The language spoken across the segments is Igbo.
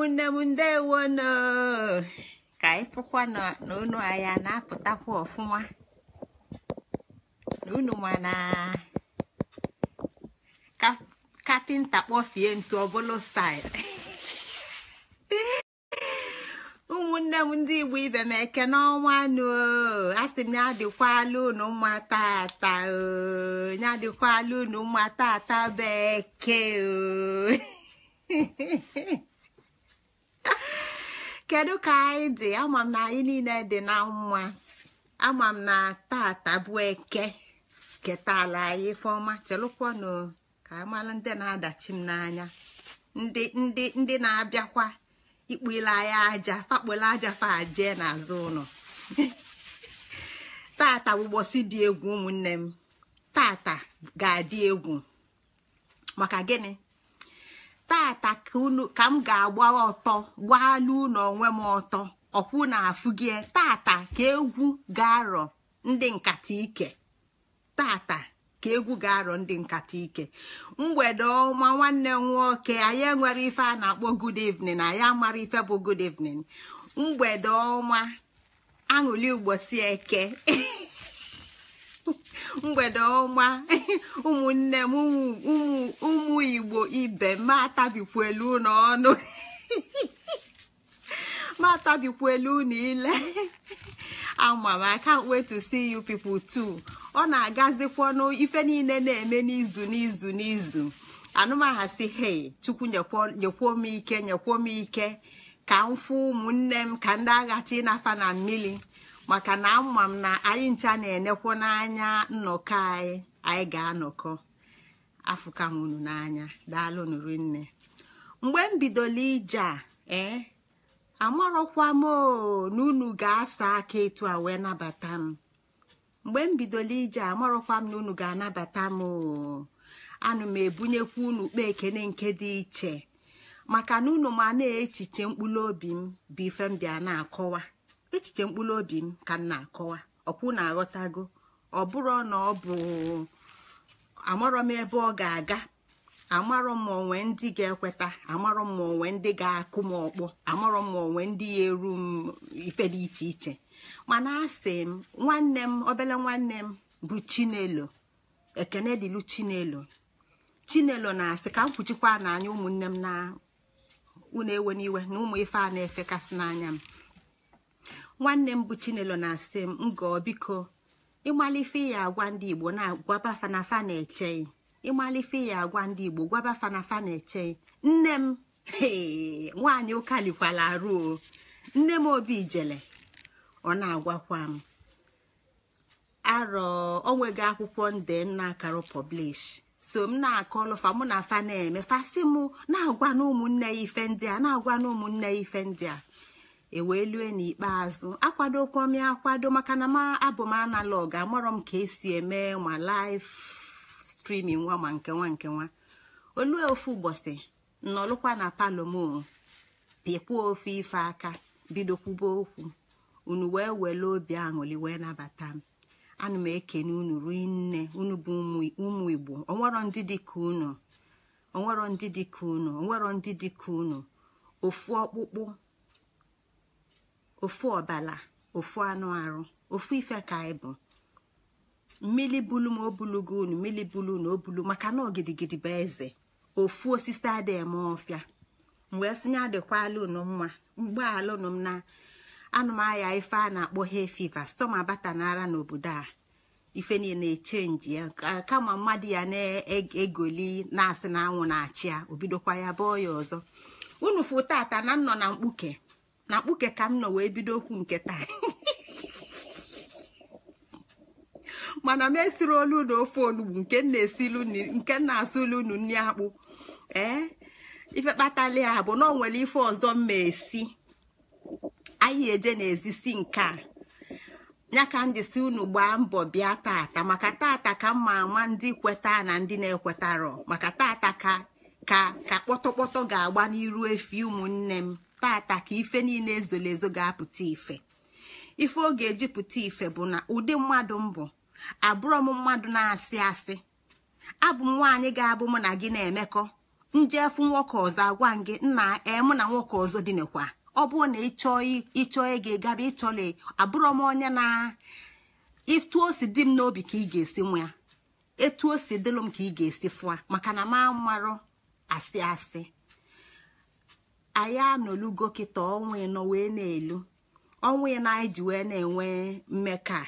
ụmụnne m ndewono ka anyị fụkwa na unu anyị na-apụtakwa ọfụma na unu ma na kapịnta kpọfie ntu ọbụlụ staịl ụmụnne m ndị igbo ibe m eke n'ọnwa nụ a sị m ya adịkwala unu mma tata ya adịkwala unu mma tata bekee kedu ka anyị dị ama na anyị niile dị na mma ama m na tata bụ eke ketala anyị ifeọma chelụkwanụ ka amala ndị na-adachi m n'anya ndị ndị ndị na-abịakwa ikpule anyị aja fakpole aja fa aje n'azụ ụlọ tata bụ dị egwu ụmụnne m tata ga-adị egwu maka gịnị tata ka m ga-agba ọtọ gbaala unu onwe m ọtọ ọkwụ na afụgie tata ka egwu ga-arọ ndị nkata ike tata ka egwu ga-arọ ndị nkata ike mgbede ọma nwanne nwoke anyị enwere ife a na-akpọ good evening anyị amara ife bụ good evening mgbede ọma aṅụli ugbosi eke mgbede ọma ụmụnne m ụmụ igbo ibe matabikwuelu atabikwelu na ọnụ m elu unu ile ama to see you ọ na-agazikwa ife niile na-eme n'izu n'izu n'izu anụmaha si hei chukwu nyekwuo m ike nyekwuo m ike ka m fụ ụmụnne m ka ndị aghachi nafa na mmiri maka na ama m na anyị ncha na-enekwu n'anya nnọkọ anyị anyị ga-anọkọ afụkam unu n'anya daalụ nụrụ nne mgbe m bidoro ije a ee eh, amarọkwa m na unu ga-asa aka etu a wee nabata m mgbe m bidoro ije amarọkwa m na unu ga-anabata m anụ m ebunyekwa unu kpa ekene nke dị iche maka na unu ma na-echiche mkpụrụ obi m bụ ife m bịa na-akọwa echiche mkpụrụ obi m ka m na-akọwa ọkwụ na-aghọtago ọ bụrụ na ọ bụ amarọ m ebe ọ ga-aga amarọ m onwe ndị ga-ekweta amarọ m onwe ndị ga-akụ m ọkpọ amarọ m onwe ndị ya eru m ife dị iche iche mana asị m nwanne m obele nwanne m bụ chinelo ekene dịlu chinelo chinelo na-asị ka m kwuchikwa n'anya ụmụnne m na unu ewe n'iwe na ụmụ ife a na-efekasị n'anya m nwanne m bụ chinelo na-asị m ngọọ biko ịmalife ya agwa ndị igbo na agwa bafanafa na-eche ịmalife ya agwa ndị igbo gwaba fanafa na-eche nne m nwaanyị ụkalikwala ruo nne m obi jele ọ na-agwakwa m arọ onwego akwụkwọ nde nna akarụ pọblish so m na akọlụfa mụ na fa na-eme fasị mụ na-agwa na ya ife ndị a na-agwa na ụmụnne ya ife ndị a ewee lue n'ikpeazụ akwado m akwado maka na m abụ m analog amarọ m ka esi eme ma laif streaming nwa ma nke nwa nke nwa olue ofu ụbọchị nọlụkwa na palọ m pịkwuo ofu ife aka bido kwuba okwu unu wee were obi aṅụli wee nabata m ana m ekene unu ruo nne unu bụ ụmụ igbo onwero ndị dịka unu onwero ndị dịka unu onwero ndị dịka unu ofu ọkpụkpụ ofu ọbala ofu anụ arụ ofu ife ka anyị bụ mmili bulu ma o bulu unu mmili bulu na o bulu maka na ogidigidi bụ eze ofu osisi adịghị eme ọfịa mgbe e sinye adịkwala unu mma mgbe alụnụ m na anụmahịa ife a na-akpọ he fiva stoma abata n'ara n'obodo a ife niile echenji ya kama mmadụ ya na-egoli na-asị na anwụ na-achị ya obidokwa ya bọọ ya ọzọ unu fụ tata na nnọ na mkpuke na kpuke ka m nọ wee bido okwu nke taa mana m esiri olu na ofe onugbu nke nke na-asụ nri akpụ ee ife kpatali ha bụ na ọ nwere ife ọzọ mma esi anyị eje n'ezi si nke a ya ka m jisi unu gbaa mbọ bịa tata maka tata ka mma ama ndị kweta na ndị na-ekwetarọ maka tata ka ka ka ga-agba n'iru efi ụmụnne m tata ka ife niile ezoro ezo ga-apụta ife ife ọ ga-eji pụta ife bụ na ụdị mmadụ mbụ abụrọ m mmadụ na-asị asị abụ m nwaanyị ga-abụ mụ na gị na-emekọ njefu nwoke ọzọ agwa gị nna emụ na nwoke ọzọ dị ọ bụrụ na ịchọọ ịchọọ ego gaba ịchọla abụrọ m onye na etu o si m n'obi ka ị ga-esi nwa ya etu o si dịlụ m ka ị ga-esi fụa maka na m amarọ asị asị anyị anọlugo kịta ọnwa ịnọ wee na-elu ọnwa ịnọ anyị ji wee na-enwe mmekọ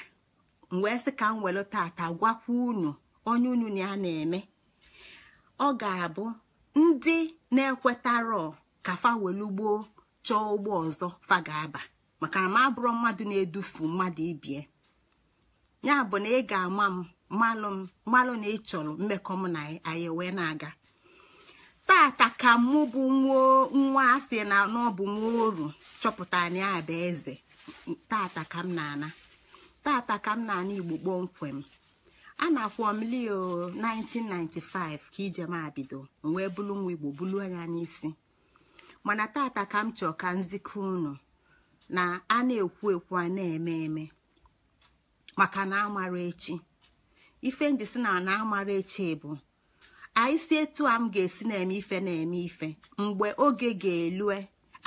m wee sị ka m welu tata gwakwa unu onye unu na ya na-eme ọ ga-abụ ndị na-ekwetarọ ka fawelu gboo chọọ ụgbọ ọzọ fa ga-aba maka na m abụrụ mmadụ na-edufu mmadụ ibie ya bụ na ị ga-ama m malụ m malụ na ị chọrọ mmekọ m na anyị wee na-aga tata ka mụ bụ nwa asị na bụ nwa oru chọpụta na ya bụ eze tata ka m na-ana tata ka m na-ana igbo kpọmkwem a na-akwọ m 1995 ka ijem abido m wee bụrụ nwa igbo bulu anya n'isi mana tata ka m ka nzikọ unu na a na-ekwu ekwu a na-eme eme maka na amara echi ife njisi na na amara echi bụ anyị si etu a m ga-esi na-eme ife na-eme ife mgbe oge ga-elue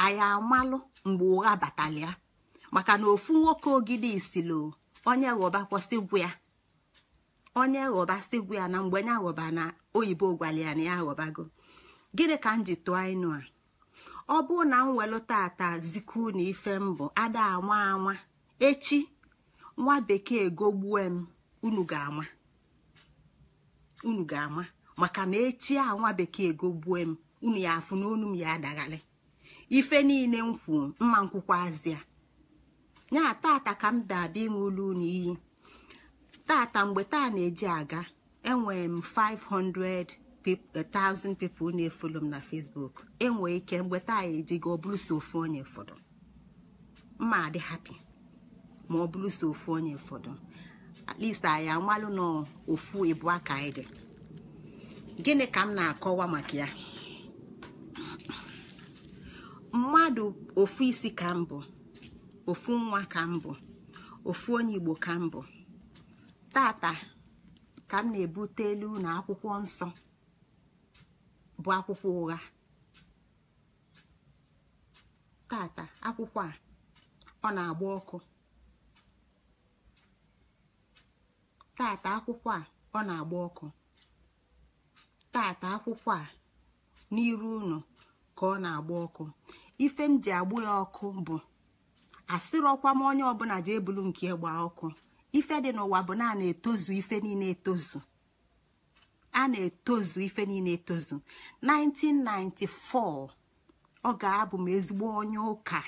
anyị amalụ mgbe ụgha batalị ya maka na ofu nwoke ogidi isilo onye ghọba ya onye ghọba sigwu ya na mgbe onye ghọba na oyibo gwara na ya ghọbago gịnị ka m ji tụọ ịnụ a ọ bụụ na m welụ tata ziku na ife bụ ada anwa anwa echi nwa bekee gogbue m unu ga unu ga-ama maka na echi a nwa bekee gogbue m unu ya afụ n'onu m ya adaghalị ife niile m kwuo mma nkwụkwazịa ya tata ka m dabịa ịṅụlu unu iyi tata mgbe taa na-eji aga enwere m 500,000 eh, people na-efolo m na Facebook enwee ike mgbe taa ejigo ọ bụrụ onye ụfọdụ mma adị hapi ma ọ bụrụ so onye ụfọdụ at least amalụ na ofu ịbụ aka dị gịnị ka m na-akọwa maka ya mmadụ ofu isi ka m bụ ofu nwa ka m bụ ofu onye igbo ka m bụ tata ka m na-ebute elu na akwụkwọ nsọ bụ akwụkwọ ụgha tata akwụkwọ a tata akwụkwọ a ọ na-agba ọkụ tata akwụkwọ a n'iru unu ka ọ na-agba ọkụ ife m ji agbụ ya ọkụ bụ asịrọkwa m onye ọbụla ji ebulu nke ịgba ọkụ ife dị n'ụwa bụ na etozu ife niile etozu a na-etozu ife niile etozu 1994 ọ ga-abụ m ezigbo onye ụka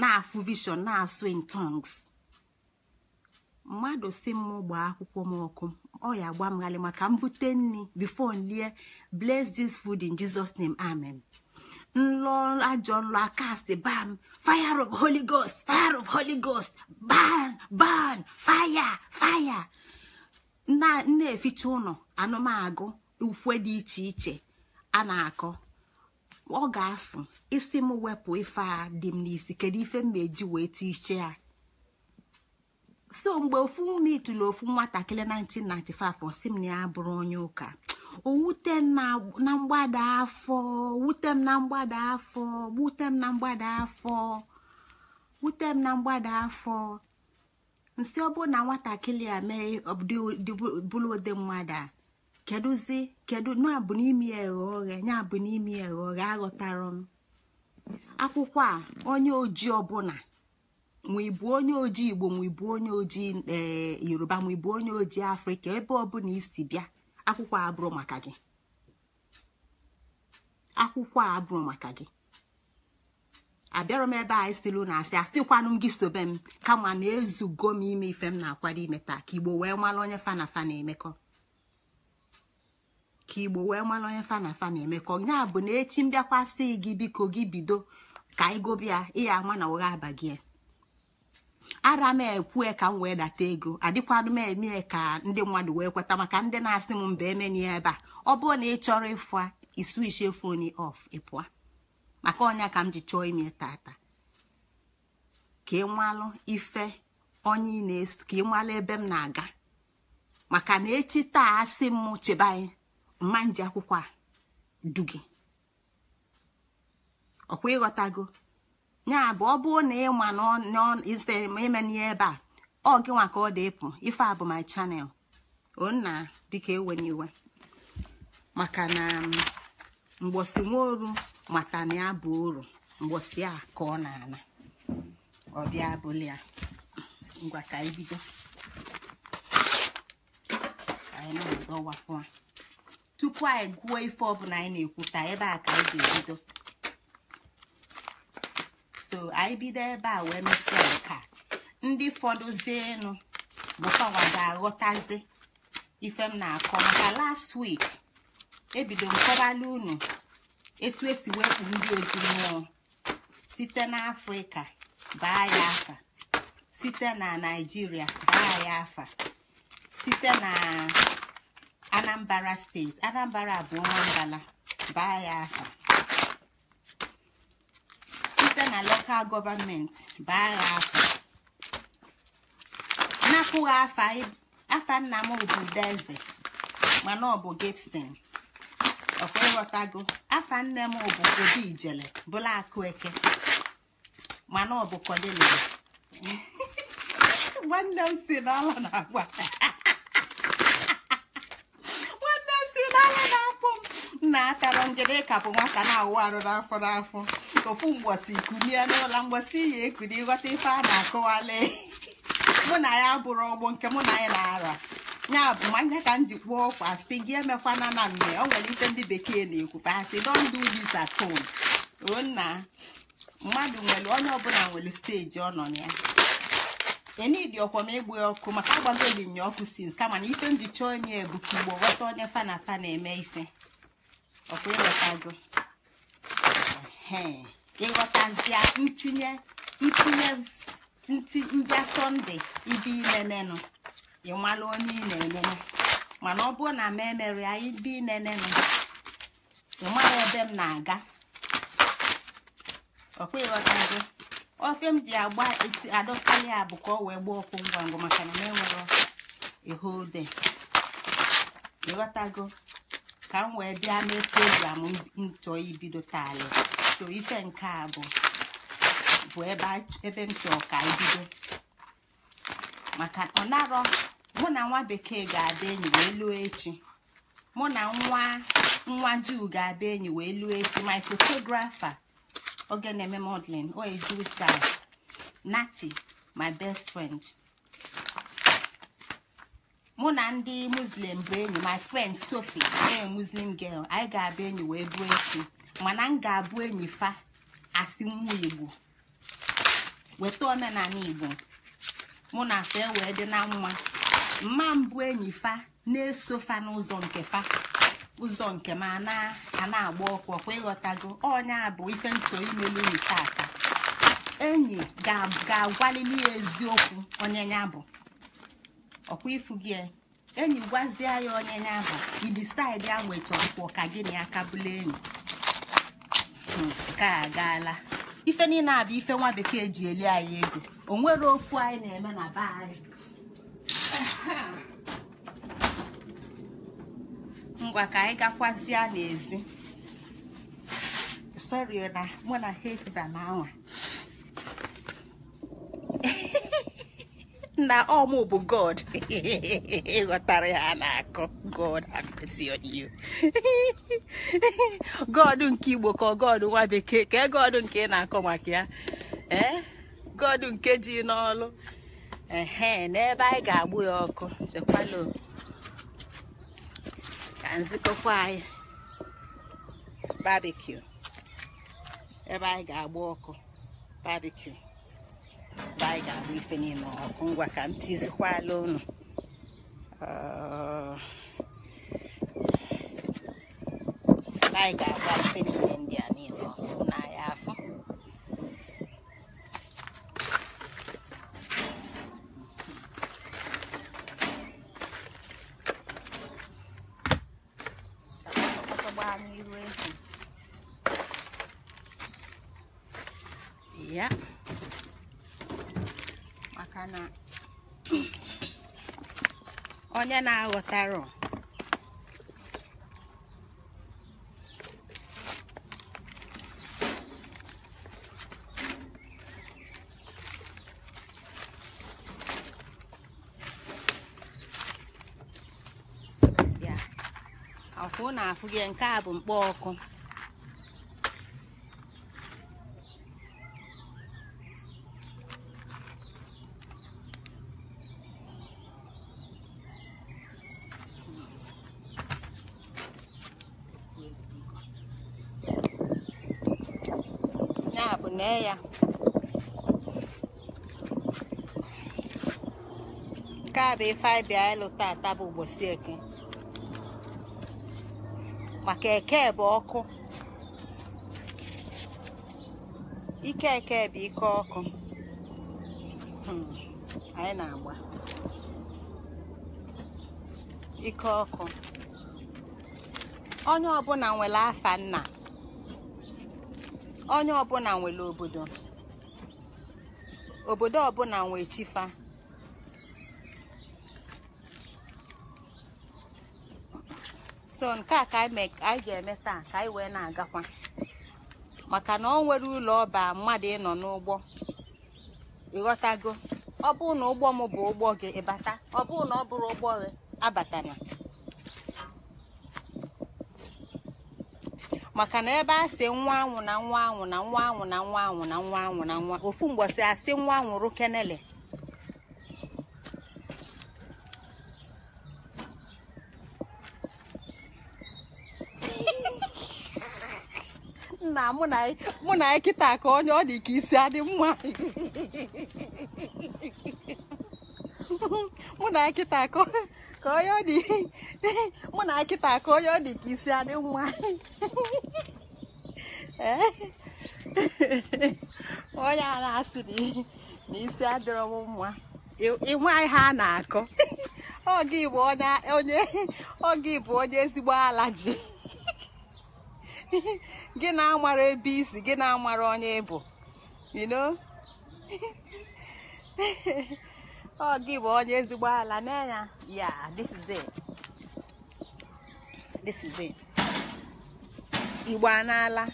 na-afụ vision na-asụ in tongues mmadụ si m gbaa akwụkwọ m ọkụ ọ ya gba m ghalị maka mbute nri before nlie bless this food in Jesus name amen nlọ ajọ nlọ akast bam fire of holy ghost fire of holy ghost ban ban fire fire na-eficha ụlọ anụmagụ ukwe dị iche iche a na-akọ ọ ga-afụ isi m wepụ ife a dị m n'isi kedu ife m eji wee tie iche ya so mgbe ofu ume itụlụ ofu nwatakịrị 1995 si m na ya bụrụ onye ụka owute m na mgbada afọ wute m na mgbada afọ wute m na mgbada afọ wute m na mgbada afọ nsị ọ bụrụ na nwatakịrị a mee bụrụ ụdị mmadụ a kedụzi kedụ na-abụ n'imi eghe oghe ya bụ n'imi eghe oghe aghọtara m akwụkwọ a onye ojii ọbụla ma onye ojii igbo ma onye ojii eh, yoruba ma onye ojii afrịka ebe ọbụla isi bịa akwụkwọ abụrụ maka gị akwụkwọ abụrụ maka gị abịarọ m ebe a isilu na asị asịkwanụ m gị sobe m kama na ezugo m ime ife m na-akwado ime taa ka igbo wee mara onye fa na emekọ ka igbo wee mara onye fana fa na-emekọ ya bụ na echi m bịakwasị gị biko gị bido ka ịgụbịa ịya ama na ụgha aba gị ara m ekwue ka m wee data ego adịkwanụ m eme ka ndị mmadụ wee kweta maka ndị na-asị m mba emeni ebe a ọ bụrụ na ị chọrọ ịfụ iswichi fon ọf ịpụa maka ọnya ka m ji chọọ ime tata ka ịmalụ ife onye ị na-eso ka ịmalụ ebe m na-aga maka na echi taa asị m chebe mma nji akwụkwọ a du gị ọkwa ịghọtago ya bụ ọ bụrụ na ịma n'izere m eme n'ihe ebe a ọ gị nwa ka ọ dị ịpụ ife a bụ my channel onna biko ewenye iwe maka na um, mgbosi nwaoru mata na ya bụ uru mgbosi a ka ọ na-ana ọ bịa bụli ya ngwa ka anyị bido anyị na-adọwapụ tupu anyị gụọ ife ọbụla anyị na-ekwuta ebe a ka anyị ga-ebido so anyị bido ebe a wee mesịa nka ndị fọdụzienụ bụkọwa ga-aghọtazi ife m na-akọ maka last week ebido m unu etu esi wepụ ndị oji mmụọ site n'afrịka baa ya afa site na naijiria baa ya afa site na anambra steeti anambra abụọ nwangala baa ya afa na local government baa ha afọ napụghị e, afa nna m bụ Udeze mana ọ bụ Gibson ọkwa ịghọtago afa nne m bụ Obi Ijele bụla Akụeke mana ọ bụ Kọdelia nwanne m si n'ọla na-agwa na-akara njede kapụ nwata na-awụ arụ n'afọ n'afọ ofu mgbọsi kulie n'ụlọ mgbọsi ya ekuli ghọta ife a na-akụwali mụ na ya bụrụ ọgbọ nke mụ na ya na-ara ya bụ mmanya ka m ji kpụọ ọkwa sị gị emekwana na mme ọ nwere ife ndị bekee na-ekwu asị don't do dis at home ruo nna mmadụ nwere onye ọbụla nwere steji ọ nọ na ya enidi ọkwa m egbu ọkụ maka agbago linya ọkụ sins kama na ife m ji chọọ onye ebu ka igbo ghọta onye fa fa na-eme ife ọkwa ịghọtago ịghọtazie ntinye ntinye ndị sọnde ibe inenenụ ịmalụ onye ị na-enene mana ọ bụrụ na m emere ya ibe inenenụ ịmara ebe m na-aga ọkwa ịghọtago ofe m ji agba adọkarị ya bụ ka ọ wee gbaa ọkụ ngwa ngwa maka na m enwere ihe ode ịghọtago ka m wee bịa mee program m chọọ ibido taalị so ife nke a bụ bụ ebe m chọọ ka ibido maka ọ narọ mụ na nwa bekee ga-abịa enyi wee echi mụ na nwa nwa juu ga-abịa enyi wee echi my photographer oge na-eme modeling or a jewish nati my best friend mụ na ndị muslim bụ enyi my friend sofi ee muslim girl anyị ga-abụ enyi wee bụ echi mana m ga-abụ enyi fa asị nwa igbo weta omenala igbo mụ na fa e wee dị na mma mma mbụ enyi fa na-eso fa n'ụzọ nke fa ụzọ nke m a na-agba ọkwa ịghọtago onye abụ ife nchọ imelu unyi tata enyi ga-agwalili ya eziokwu onye ya bụ ọkwa ifu gị enyi gwazie ya onye n'ahụ idisaidi anweta ọkwọ ka gị na ya kabụla enyi hmm, nke a gaala ife niile bụ ife nwa bekee ji eli anyị ego o nwere ofu anyị na-eme na be anyị ngwa ka anyị gakwazie n'ezi sorry na mụ na heda na anwa na ọmụ bụ god ịghọtara ya na-akọ god you god nke igbo ka god nwa bekee ka e god nke ị na-akọ maka ya eh? god nke ji n'ọlụ ehe n'ebe anyị ga-agbụ ya ọkụ chekwalo ka nzikọkwa anyị barbecue ebe anyị ga-agbụ ọkụ barbecue ka anyị ah. ga-abụ ife n'ime ọkụ ngwa ka m tizikwala unu ka anyị ga-agba ife niile ndị a ya na-aghọtara ya afụ na afụ gị nke a bụ mkpọ ọkụ bụ ife anyị bịa ịlụ tata bụ ụbọchị eke maka eke bụ ọkụ ike eke bụ ike ọkụ hmm, anyị na-agba ike ọkụ onye ọbụla nwere afa nna onye ọbụla nwere obodo obodo ọbụla nwere chifa so nke a ka anyị ga-eme taa ka anyị wee na-agakwa maka na ọ nwere ụlọ ọba mmadụ ịnọ n'ụgbọ ịghọtago ọ bụrụ na ụgbọ m bụ ụgbọ gị ịbata ọ bụrụ na ọ bụrụ ụgbọ gị abatana maka na ebe a si nwa anwụ na nwa anwụ na nwa anwụ na nwa anwụ na nwa anwụ na nwa ofu mgbọsị asị nwa anwụrụ kenele na mụ na anyị kịta ka onye ọ dị ka isi adị mma mụ na kịta ka onye ọ dị mụ na kịta ka onye ọ dị ka isi adị mma onye a na-asị na isi adịrọ m mma ịnwe ihe a na-akọ oge bụ onye ezigbo ala ji gị na-amara ebe isi gị na-amara onye ịbụ ino ọ gị bụ onye ezigbo ala n'anya ya this is it this is it igbo n'ala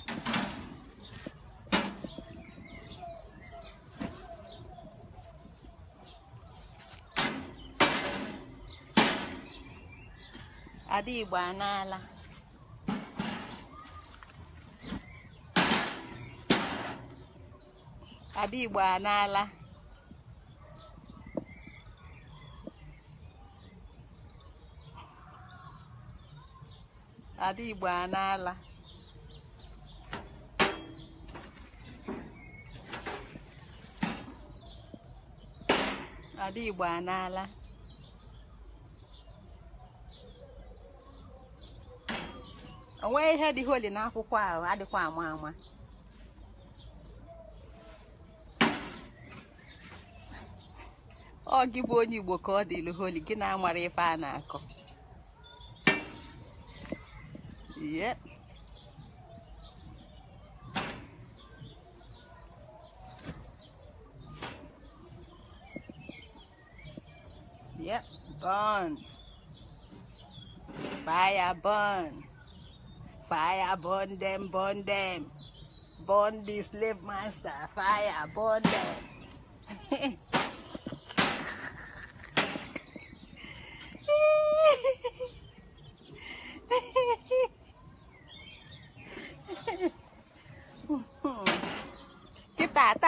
Adị igbo n'ala Ada Igbo anaala Ada Igbo anaala Ada Igbo onwe ihe dị holi n'akwụkwọ ahụ adịkwa ama ama ọ gị bụ onye igbo ka ọ dị ilu holi gị na-amara ife a na-akọ yep yep burn fire burn fire burn them burn them burn the slave master fire burn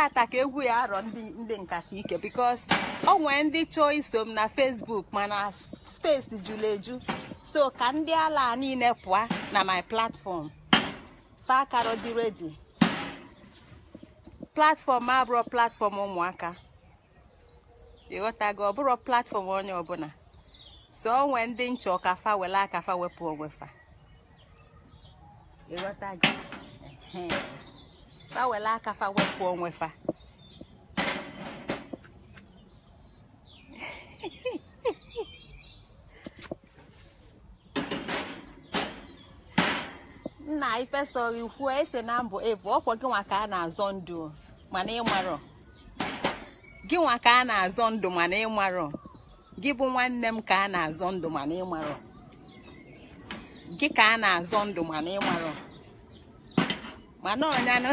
tata ka egwu ya arọ ndị nkata ike bikos o nwee ndị chọọ iso m na fesbuk mana spesi jụrụ eju so ka ndị ala niile pụọ na my platfọm fakaro dị redi platfọm bụrụ platfọm ụmụaka ịghọtago ọ bụrụ platfọm onye ọbụla so o nwee ndị nchọ ka fa wele aka fa wepụ onwe fa were aka fa wepụ onwe fa nna ifesoghị kwuo ese na mbụ ebu ọkwọ gịnwa ka a na-azọ ndụ mana ịmarọ gị nwa ka a na-azọ ndụ mana ịmarọ gị bụ nwanne m ka a na-azọ ndụ mana ịmarọ gị ka a na-azọ ndụ mana ịmarọ mana ọnyanụ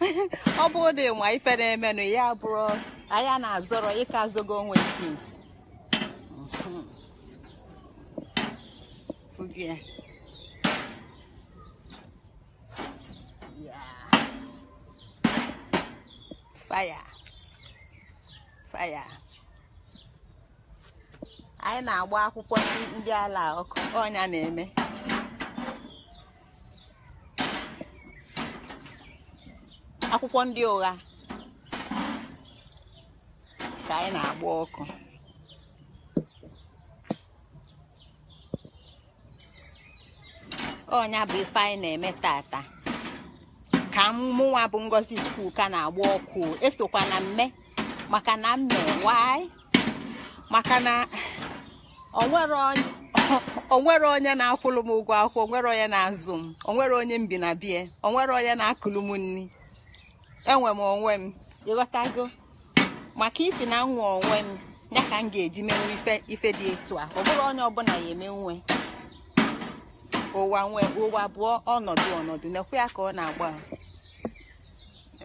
ọ bụ dị nwa ife na-emenụ ya bụrụ anya na-azọrọ ịka zogo onwe sis faya faya anyị na-agba akwụkwọ ndị ala ọkụ ọnya na-eme akwụkwọ ndị ụgha ka anyị na-agba ọkụ ọnya bụ ife anyị na-eme tata ka mụnwa bụ ngozi chukwu ka na-agba ọkụ esokwa na mme maka na mme wanyị maka na onwere onye na-akwụrụ m ụgwọ akwụkwọ onwere onye na-azụ m onwere onye mbinabie onwere onye na-akụlụ m nri enwe m onwe m ịghọtago maka ifi na nwa onwe m ya ka m ga-eji menwe ife ife dị etu a ọ bụrụ onye ọbụla ya eme nwe ụwa nwe ụwa abụọ ọnọdụ ọnọdụ na-ekwe ya ka ọ na-agba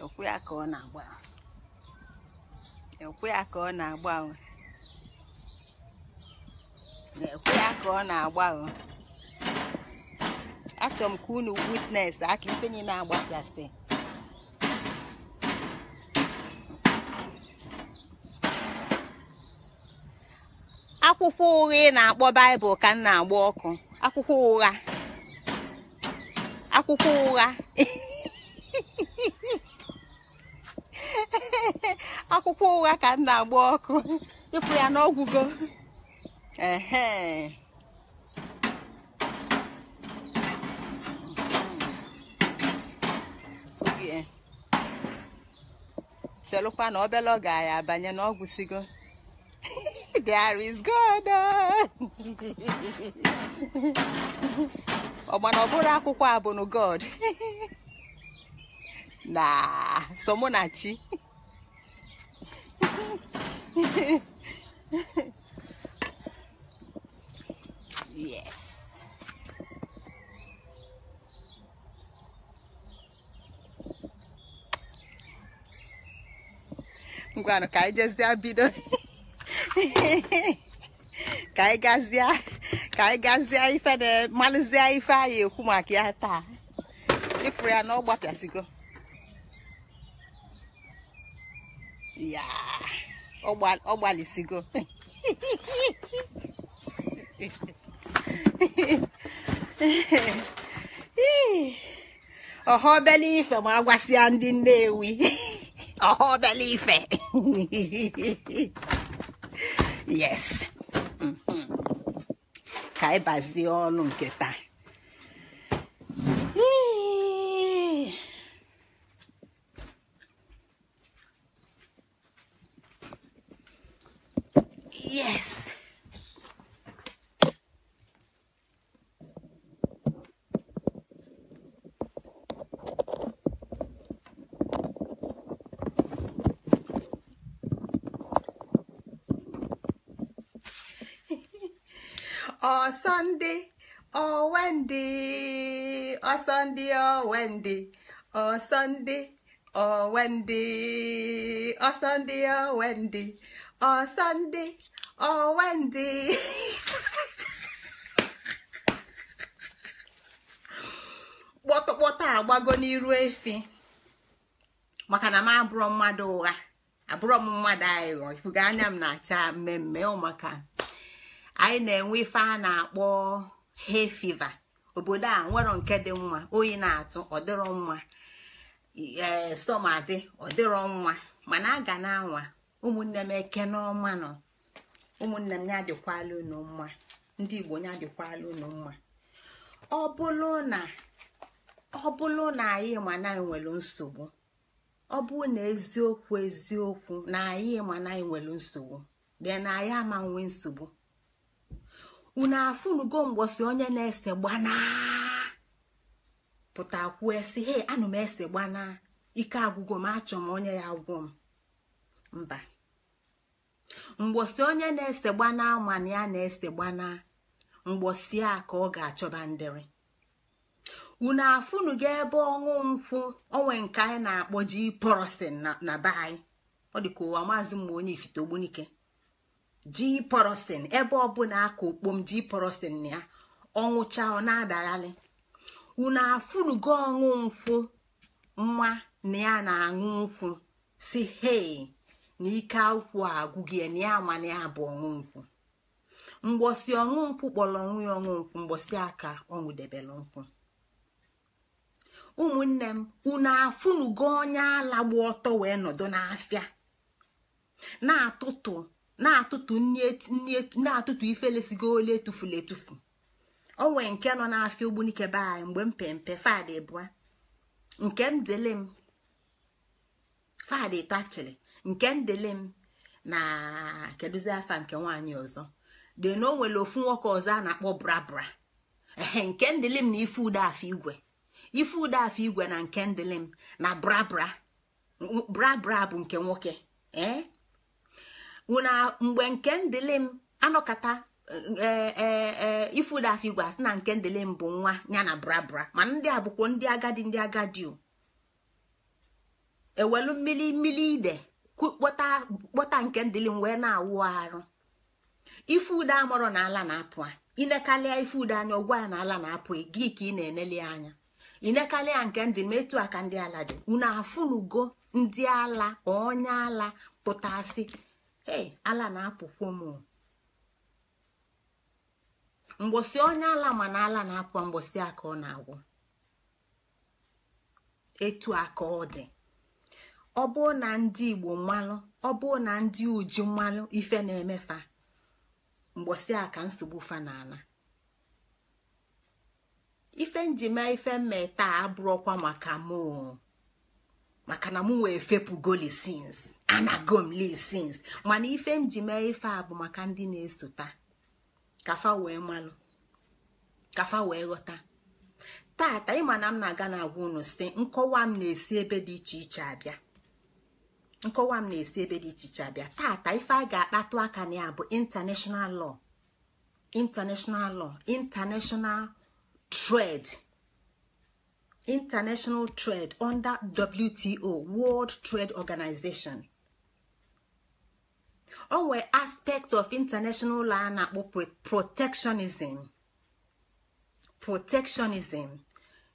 ekwe ya ka ọ na-agba ekwe ya ka ọ na-agba na-ekwe ya ka ọ na-agba achọrọ m ka unu witness aka ife niile agbapịasị akwụkwọ ụgha ị na-akpọ baịbụl ka m na-agba ọkụ akwụkwọ ụgha akwụkwọ ụgha akwụkwọ ụgha ka m na-agba ọkụ ịpụ ya n'ọgwụgo ehe chelụkwa na obele ọ ga ya abanye n'ọgwụsigo there is God. ọgbana ọbụrụ akwụkwọ abụnụ God na somunachi yes ngwanụ ka anyị jezie bido ka anyị gazie ka anyị gazie ife na ife anyị ekwu maka ya taa ịfụrụ ya na ọ gbapịasịgo ya ọ gbalịsịgo ife ma agwasịa ndị Nnewi ọhọbele ife yes ka anyị bazie ọnụ nke taa yes ọsọndị ọwendị oh, ọsọndị oh, ọwendị oh, ọsọndị ọwendị ọsọndị ọwendị ọsọndị ọwendị kpọtụkpọtụ agbago n'iru efi maka na m abụrọ mmadụ ụgha abụrọ m mmadụ aghụghọ e ifuga anya m na-acha mmemme maka anyị na-enwe ife a na-akpọ hay fiva obodo a nwere nke dị mma oyi na-atụ ọdịrọ mma ee sọmadị ọdịrọ mma mana a ga na-anwa ụmụnne m eke n'ọma nọ ụmụnne m ya adịkwala unu mma ndị igbo ya adịkwala unu mma ọ bụlụ na ọ na anyị ma na nwere nsogbu ọ bụrụ na eziokwu eziokwu na anyị ma na nwere nsogbu bịa na anyị ama nwe nsogbu unu afunugo mgbọsi onye na-ese gbana pụta kwuo esi he anụ m ese gbana ike agwụgo m achọ m onye ya gwọ m mba mgbọsi onye na-ese gbana mana ya na-ese gbana mgbọsi a ka ọ ga-achọba ndịrị unu afụnugo ebe ọṅụ nkwụ onwe nke anyị na-akpọ ji porosin na be anyị ọ dị ka ụwa maazị mma onye ifite ogbunike ji ebe ọbụla aka okpom ji porosin ya ọnwụcha ọ na-adaghalị unu afụnugo ọṅụ nkwụ mma na ya na-aṅụ nkwụ si hei na ike akwụ agwụghị ya na ya mana ya bụ ọṅụ nkwụ mgbọsi ọṅụ nkwụ kpọrọ nwụ ya ọṅụ nkwụ mgbọsi aka ọṅụdebere nkwụ ụmụnne m unu afụnugo onye ala gba ọtọ wee nọdụ n'afịa na-atụtụ na-atụtụ ifelesigo ole etufula etufu onwe nke nọ n'afịa ogbunike be anyị mgbe mpempe fadị fada bụa nke m dele m fada ịtọ nke m dele m na kedụzi afa nke nwaanyị ọzọ dị na o nwere ofu nwoke ọzọ a na-akpọ brabra ehe nke ndịlị m na ife ude afọ igwe ife ude afọ igwe na nke ndịlị m na brabra brabra bụ nke nwoke ee wụna mgbe nke ndịlị m anọkata ifudaf igwe asị na nke ndịlị m bụ nwa ya na brabra ma ndị a bụkwa ndị agadi ndị agadi ewelu mmiri mmiri ide kpọta nke ndịlị m wee na-awụ arụ ifude amọrọ na ala na-apụ inekalịa ifude anya ọgwụ ya na ala na-apụ e, gị ka ị na-eneli anya inekalịa nke ndị m etu aka ndị ala dị unu afụnugo ndị ala onye ala pụtasị ee ala na-apụkwo m mgbosi onye ala mana ala na akwa mgbosi aka ọ na-agwụ etu aka ọ dị ọ bụrụ na ndị igbo mmanụ, ọ bụrụ na ndị uju mmalụ ife na-emefa mgbosi aka nsogbu fa ala. ife njime ife mmeta abụrụkwa maka mụ maka na m wee fepụ goli sins anako m lisins mana ife m ji mee ife a bụ maka ndị na-esota kafa wee malụ kafa wee ghọta tata ịma na m na-aga na-agwa unu site nkọwa m na-esi ebe dị iche iche abịa nkọwa m na-esi ebe dị iche iche abịa tata ife a ga-akpatụ aka na ya bụ international law international lọ international trade international trade under WTO World Trade Organization ọ nwee aspect of international a na-akpọ protectionism protectionism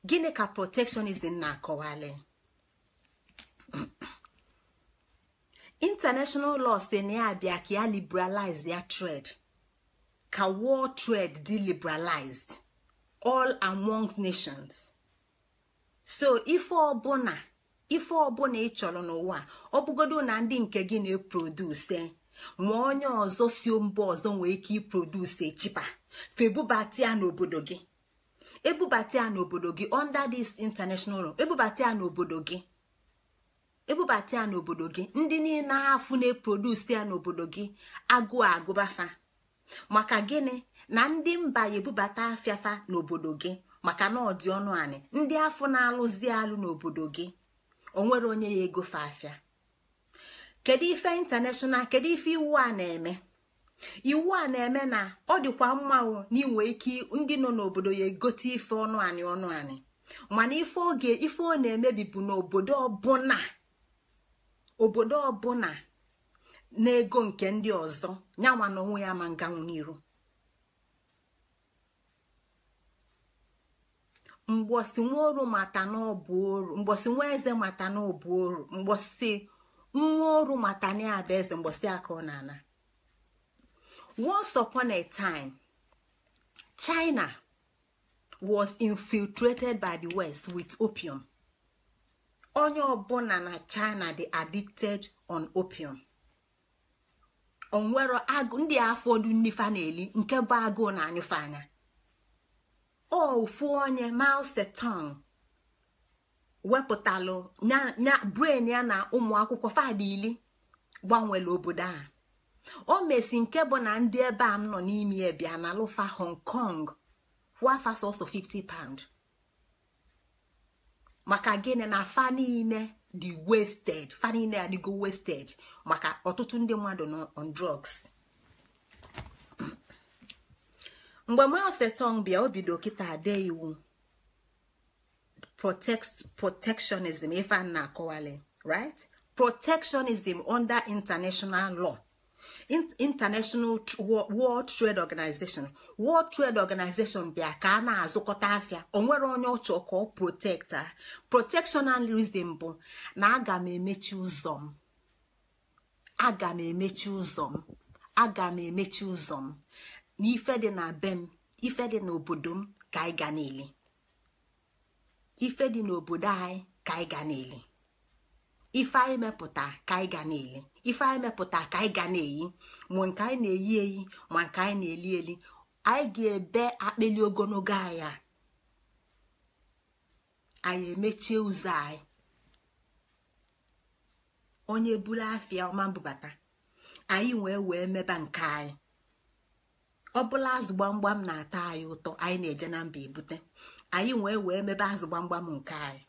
gịnị ka protectionism na-akọwali international law si na ya abịa ka ya liberalize ya trade ka world trade dị liberalized all among nations so ife ọbụna ife ọbụla ị n'ụwa ọ bụgodo na ndị nke gị na-eproduse ma onye ọzọ si mba ọzọ nwee ike iproduce echipa febubata ya n'obodo gị ebubata ya n'obodo gị under this international law ebubata ya n'obodo gị ebubata ya n'obodo gị ndị niile afụ na-eproduce ya n'obodo gị agụụ agụbafa maka gịnị na ndị mba ebubata afịafa n'obodo gị maka na ọ dị ọnụ anị ndị afọ na-alụzi alụ n'obodo gị onwere onye ya ego fa afịa kedu ife intanashonal kedu ife iwu a na-eme iwu a na-eme na ọ dịkwa mma na ike ndị nọ n'obodo ya egote ife ọnụ anị ọnụ anị mana ife oge ife ọ na-emebi bụ n'obodo ọbụna obodo ọbụna na-ego nke ndị ọzọ ya onwe ya ma nganwu n'iru mgbosi mata oru mgbosi nwa ọrụ maka na ya bụ eze ọ na-ana once upon time China was infiltrated by the West with opium onye ọbụla na China dị addicted on opium onwero agụ ndị afọdụ nnifa na nke bụ agụụ na anyụfe anya ofu onye Mao wepụtalụ nya bren ya na ụmụ akwụkwọ fadili gbanwere obodo a o mesi nke bụ na ndị ebe a m nọ n'ime a na lụfa hong kong wafa sọsọ 50 pound maka gịnị na fa niile dị wasted fa maka ọtụtụ ndị mmadụ na on drugs mgbe maosetong bịa o bido kịta ade iwu protectionism ife a na-akọwali right protectionism under international law international world trade organization world trade organization bịa ka a na-azụkọta afịa onwere onye ọchọ ka ọ protekta protectionalism bụ na aga m emechi ụzọ m aga m emechi ụzọ m aga m emechi ụzọ m na ife dị na be m ife dị obodo m ka anyị ga niile ife dị n'obodo anyị ka anyị ga na-eli ife anyị mepụta ka anyị ga na-eli ife anyị mepụta ka anyị ga na-eyi ma nke anyị na-eyi eyi ma nke anyị na-eli eli anyị ga-ebe akpịli ogologo anya anyị emechie ụzọ anyị onye buru afịa ọma mbubata anyị wee wee meba nke anyị ọ bụla azụ gbamgbam na-ata anyị ụtọ anyị na-eje na mba ebute anyị wee wee mebe azụ gbamgbam nke anyị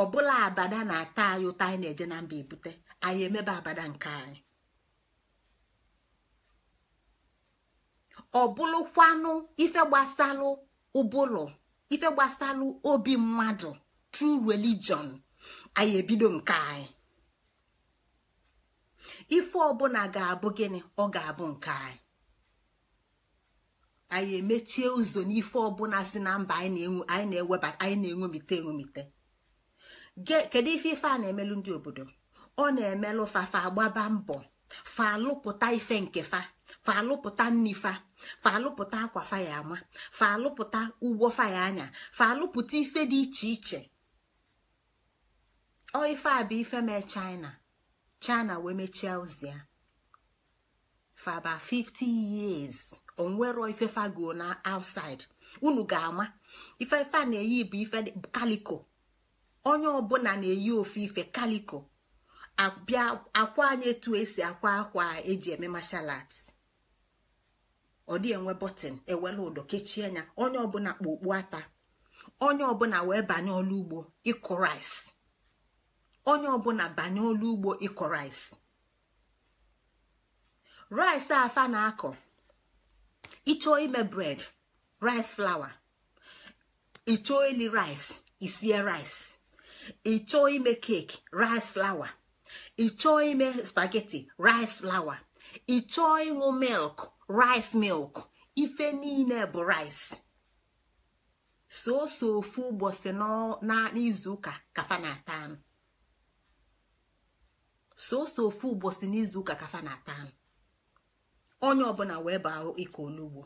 ọbụla abada na-ata anyị ụta anyị na-eje na mba ebute anyị emebe abada nke anyị ọbụlụkwanụ ife gbasalụ ụbụlụ ife obi mmadụ tru religion anyị ebido nke anyị ife ọbụla ga-abụ gịnị ọ ga-abụ nke anyị anyị emechie ụzọ n'ife ọbụla si na mba anyị na-enwemite enwemite kedu ife ife a na-emelụ ndị obodo ọ na-emelụ fafa agbaba mbọ fa alụpụta ife nke fa fa alụpụta nnifa fa alụpụta akwa faya ya ama fa alụpụta ụgbọ faya anya fa alụpụta ife dị iche iche ọ ife a bụ ife mee china china wee mechie ụzọ ya fa about 50 years onwero ifefago na outside unu ga-ama ifefe a na-eyi bụ ife kaliko onye ọbụla na-eyi ofe ife kaliko abịa akwa anyị etu esi akwa akwa eji eme martial arts ọ dị enwe bọtịn ewela ụdọ kechie ya onye ọbụla kpa okpu ata onye ọbụla wee banye ọlụ ugbo ịkụ rais onye ọbụla banye ọlụ ugbo ịkụ rice rais afa na-akọ ịchọọ ime bred rice flour ịchọọ ili rice isie rice ịchọọ ime keki rice flour ịchọọ ime spageti rice flour ịchọọ ịṅụ milk rice milk ife niile bụ rice soso ofu ụbọchị n'izu ụka kafa na-ata soso ofu ụbọchị n'izu ụka kafa na-ata onye ọbụla wee baa ịkọ olugbo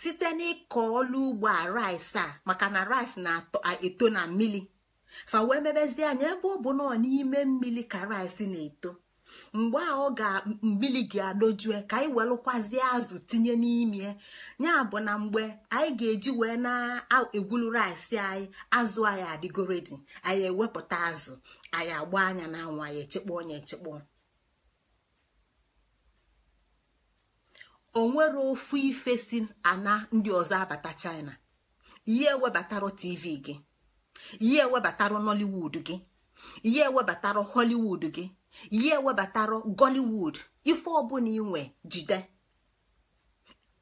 site n'ịkọ ọlụ ugbo a rice a maka na rice na-eto na mmili fa wee mebezie anya ebe ọ bụ n'ime mmili ka rice na-eto mgbe a ọ ga mmiri ga-adojue ka anyị welụkwazie azụ tinye n'ime ya bụ na mgbe anyị ga-eji wee na-egwulu rice anyị azụ anyị adịgoredi anyị ewepụta azụ anyị agba anya na anyị echekpọ onye echekpọ onwere ofu ife si ana ndị ọzọ abata china ihe ewebatara tv gị ihe ewebatara nollywood gị ihe ewebatara hollywood gị ihe webatara gollywood ife ọbụla inwe jide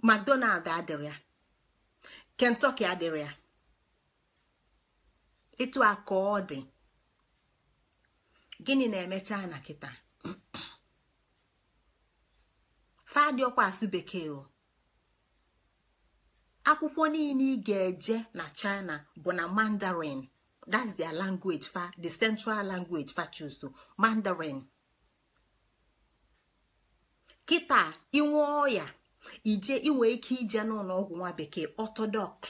mcdonald adịrị ya kentucky adịrị ya etu a ka ọ gịnị na-emecha na kịta fadiọkwa bekee o akwụkwọ niile ị ga-eje na china bụ na mandarin that's their language fa the central language fa chuso mandarin kịta inwe ọya ije inwe ike ije n'ụlọ ọgwụ nwa bekee orthodox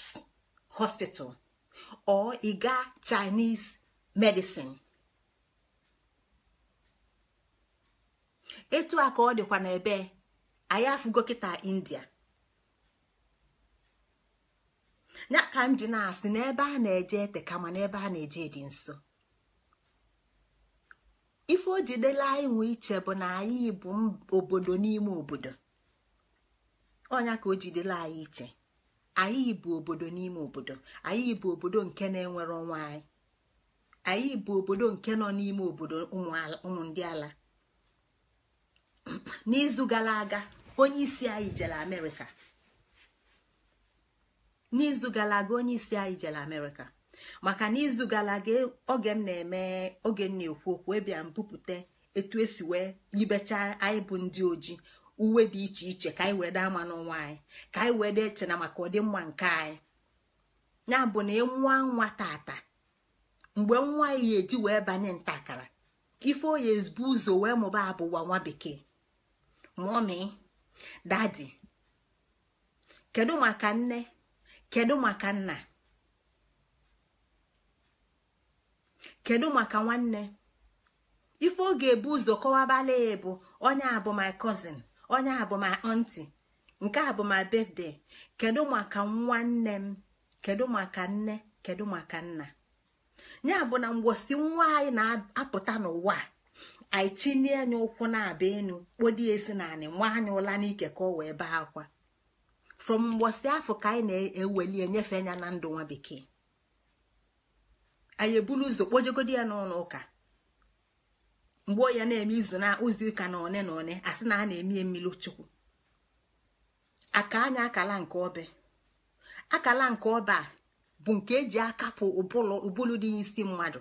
hospital or ịga chaịnis chinese medicine etu a ka ọ dịkwa n'ebe anyị afụgo kịta india ya ka m na-asị n'ebe a na-eje ete kama ebe a na-eje dị nso ife o jidela anyị nwe iche bụ na anyị bụ obodo n'ime obodo ọnya ka o jidela anyị iche anyị bụ obodo n'ime obodo anyị bụ obodo nke na-enwere onwe anyị anyị bụ obodo nke nọ n'ime obodo ụmụ ndị ala n'izu gara aga onye isi anyị jere amerịka n'izu gara aga onye isi anyị jere amerịka maka n'izu gara aga oge m na-eme oge m na-ekwu okwu ebịa m etu esi wee yibecha anyị bụ ndị ojii uwe dị iche iche ka anyị wee daa ama nwa anyị ka anyị wee dee chena maka ọdịmma nke anyị ya bụ na e nwa nwa tata mgbe nwa ya eji wee banye ntakara ife oyi ezbu ụzọ wee mụba abụwa nwa bekee mụọmị dadi kedu maka nne kedu maka nna kedu maka nwanne ife ọ ga-ebu ụzọ kọwabala ya bụ onye a bụ my cousin onye a bụ my aunty nke a bụ my birthday kedu maka nwanne m kedu maka nne kedu maka nna ya bụ na mgbosi nwa anyị na-apụta n'ụwa a anyị tinye anya ụkwụ na-aba enu kpodi esi na anị nwa anya ụla n'ike ka ọ wee baa akwa from mgbọsị afọ ka anyị na-eweli enyefe anya na ndụ nwa bekee anyị eburu ụzọ kpojegodi ya n'ụlọ ụka mgbe ya na-eme izu na ụzọ ụka na one na one asị na a na-eme mmiri chukwu aka anya akala nke ọbe akala nke ọbe a bụ nke eji akapụ ụbụlụ dị n'isi mmadụ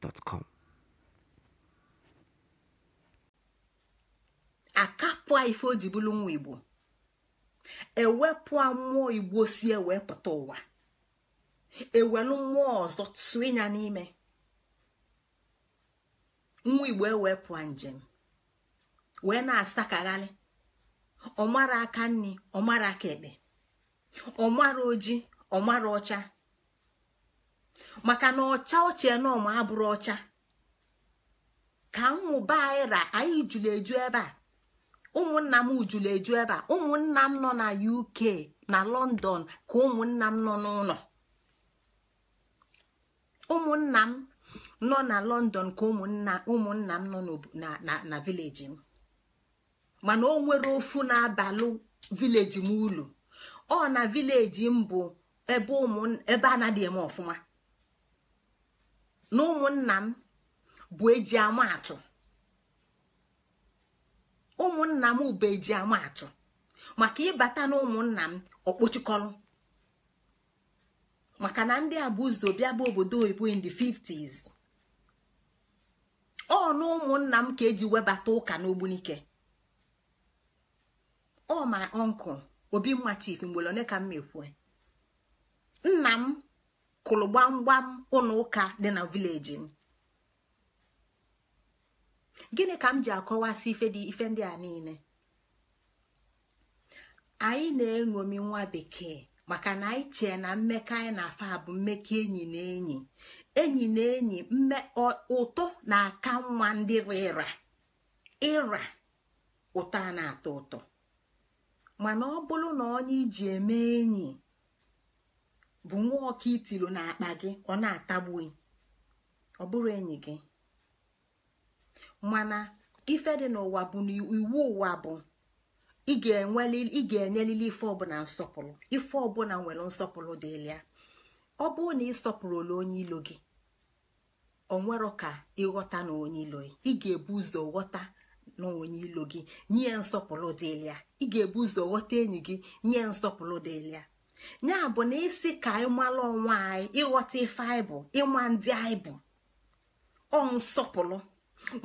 gmail.com. akapụa ife o ji bụrụ nwa igbo ewepụa mmụọ igbo si ewee pụta ụwa ewelu mmụọ ọzọ tụọ ịnya n'ime nwa igbo ewepụa njem wee na-asakagharị ọmara aka nri ọmara aka ekpe ọmara oji ọmara ọcha maka na ọcha ọcha na abụrụ ọcha ka mmụba anyị ra anyị jụrụ eju ebe a ụmụnna m jụrụ eju ebe a ụmụnna m nọ na UK na London ka ụmụnna m nọ n'ụlọ ụmụnna m nọ na London ka ụmụnna m nọ na vileji m mana o nwere ofu na-abalụ vileji m ulu ọ na vileji m bụ ebe a na adịghị m ọfụma na ụmụnna m bụ eji amaatụ ụmụnna m bụ eji amaatụ maka ịbata na ụmụnna m ọkpọchikọrọ maka na ndị a bụ ụzọ bịa bụ obodo oyibo in the 50s ọ na ụmụnna m ka eji webata ụka n'ogbunike ọ ma nkụ obi mma chief mgbele ka m mekwue nna m kụrụ gbamgbam ụlọ ụka dị na vileji m gịnị ka m ji akọwasị ife ndị a niile anyị na-eṅomi nwa bekee maka na anyị chee na mmekọ anyị na-afa bụ mmekọ enyi na enyi enyi na enyi ụtọ na-aka nwa ndị rịra ịra ụtọ a na-atọ ụtọ mana ọ bụrụ na onye iji eme enyi bụ nwa ọka itilo n'akpa gị ọ na-atagbughị ọ bụrụ enyi gị mana ife dị n'ụwa bụ na iwu ụwa bụ ị ga-enyelili ife ọbụla nsọpụrụ ife ọbụla nwere nsọpụrụ dịlị ọ bụrụ na ị sọpụrụla onye ilo gị onwero ka ịghọta na onye ilo ị ga-ebu ụzọ ghọta na onye ilo gị nye nsọpụrụ dịlị ị ga-ebu ụzọ ghọta enyi gị nye nsọpụrụ dịlịa ya bụ na isi ka anyị mara onwe anyị ịghọta ife anyị bụ ịma ndị anyị bụ ọ nsọpụrụ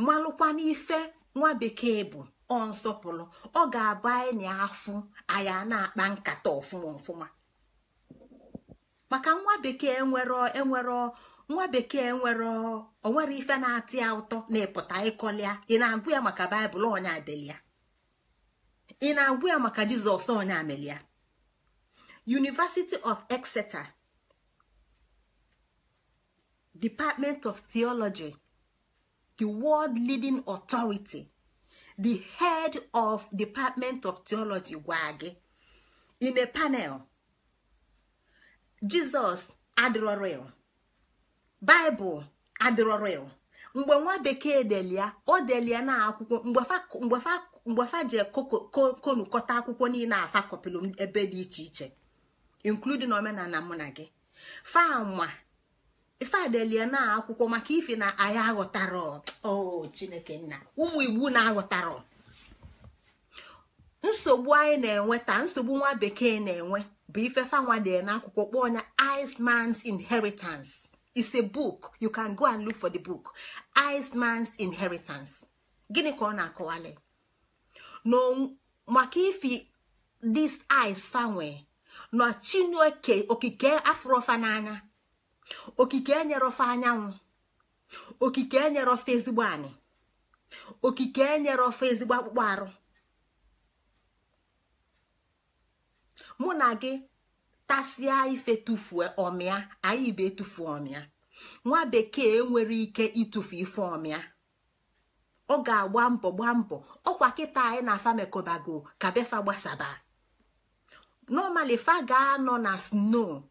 malụkwa n'ife nwa bekee bụ ọ nsọpụrụ ọ ga-abụ anyị na afụ anyị na-akpa nkata ọfụma ọfụma maka nwa bekee nwere enwere nwa bekee nwere onwere ife na-atị ya ụtọ na-epụta ịkọlịa ị na-agụ ya maka baịbụl ọnya delia ị na-agụ ya maka jizọs ọnya melia University of Exeter Department of Theology the world leading authority the head of Department of Theology gwara gị in a panel Jizọs adịrọrịl Baịbụl adịrọrịl mgbe nwa bekee delia o delia na akwụkwọ mgbe fa konukọta akwụkwọ niile afa kọpịlụ ebe dị iche iche including omenala mụ na gị fanwa ifeadelie na akwụkwọ maka ife na anyị aghọtara o chineke nna ụmụ igbo na-aghọtara nsogbu anyị na-enwe taa nsogbu nwa bekee na-enwe bụ ife fanwa dị akwụkwọ kpọọ ya Iceman's Inheritance is a book you can go and look for the book Iceman's Inheritance gịnị ka ọ na-akọwali maka ife this ice fanwe na chineke okike afrọfa n'anya okike ofe anyanwụ okike ofe ezigbo anyị okike enyere ofe ezigbo akpụkpọ arụ mụ na gị tasịa ife tufu ọmịa anyị ibe tufu ọmịa nwa bekee nwere ike itufu ife ọmịa ọ ga-agba mbọ gbaa mbọ ọkwa kịta anyị na afa mekobago ka befa gbasaba normally faga anọ na snow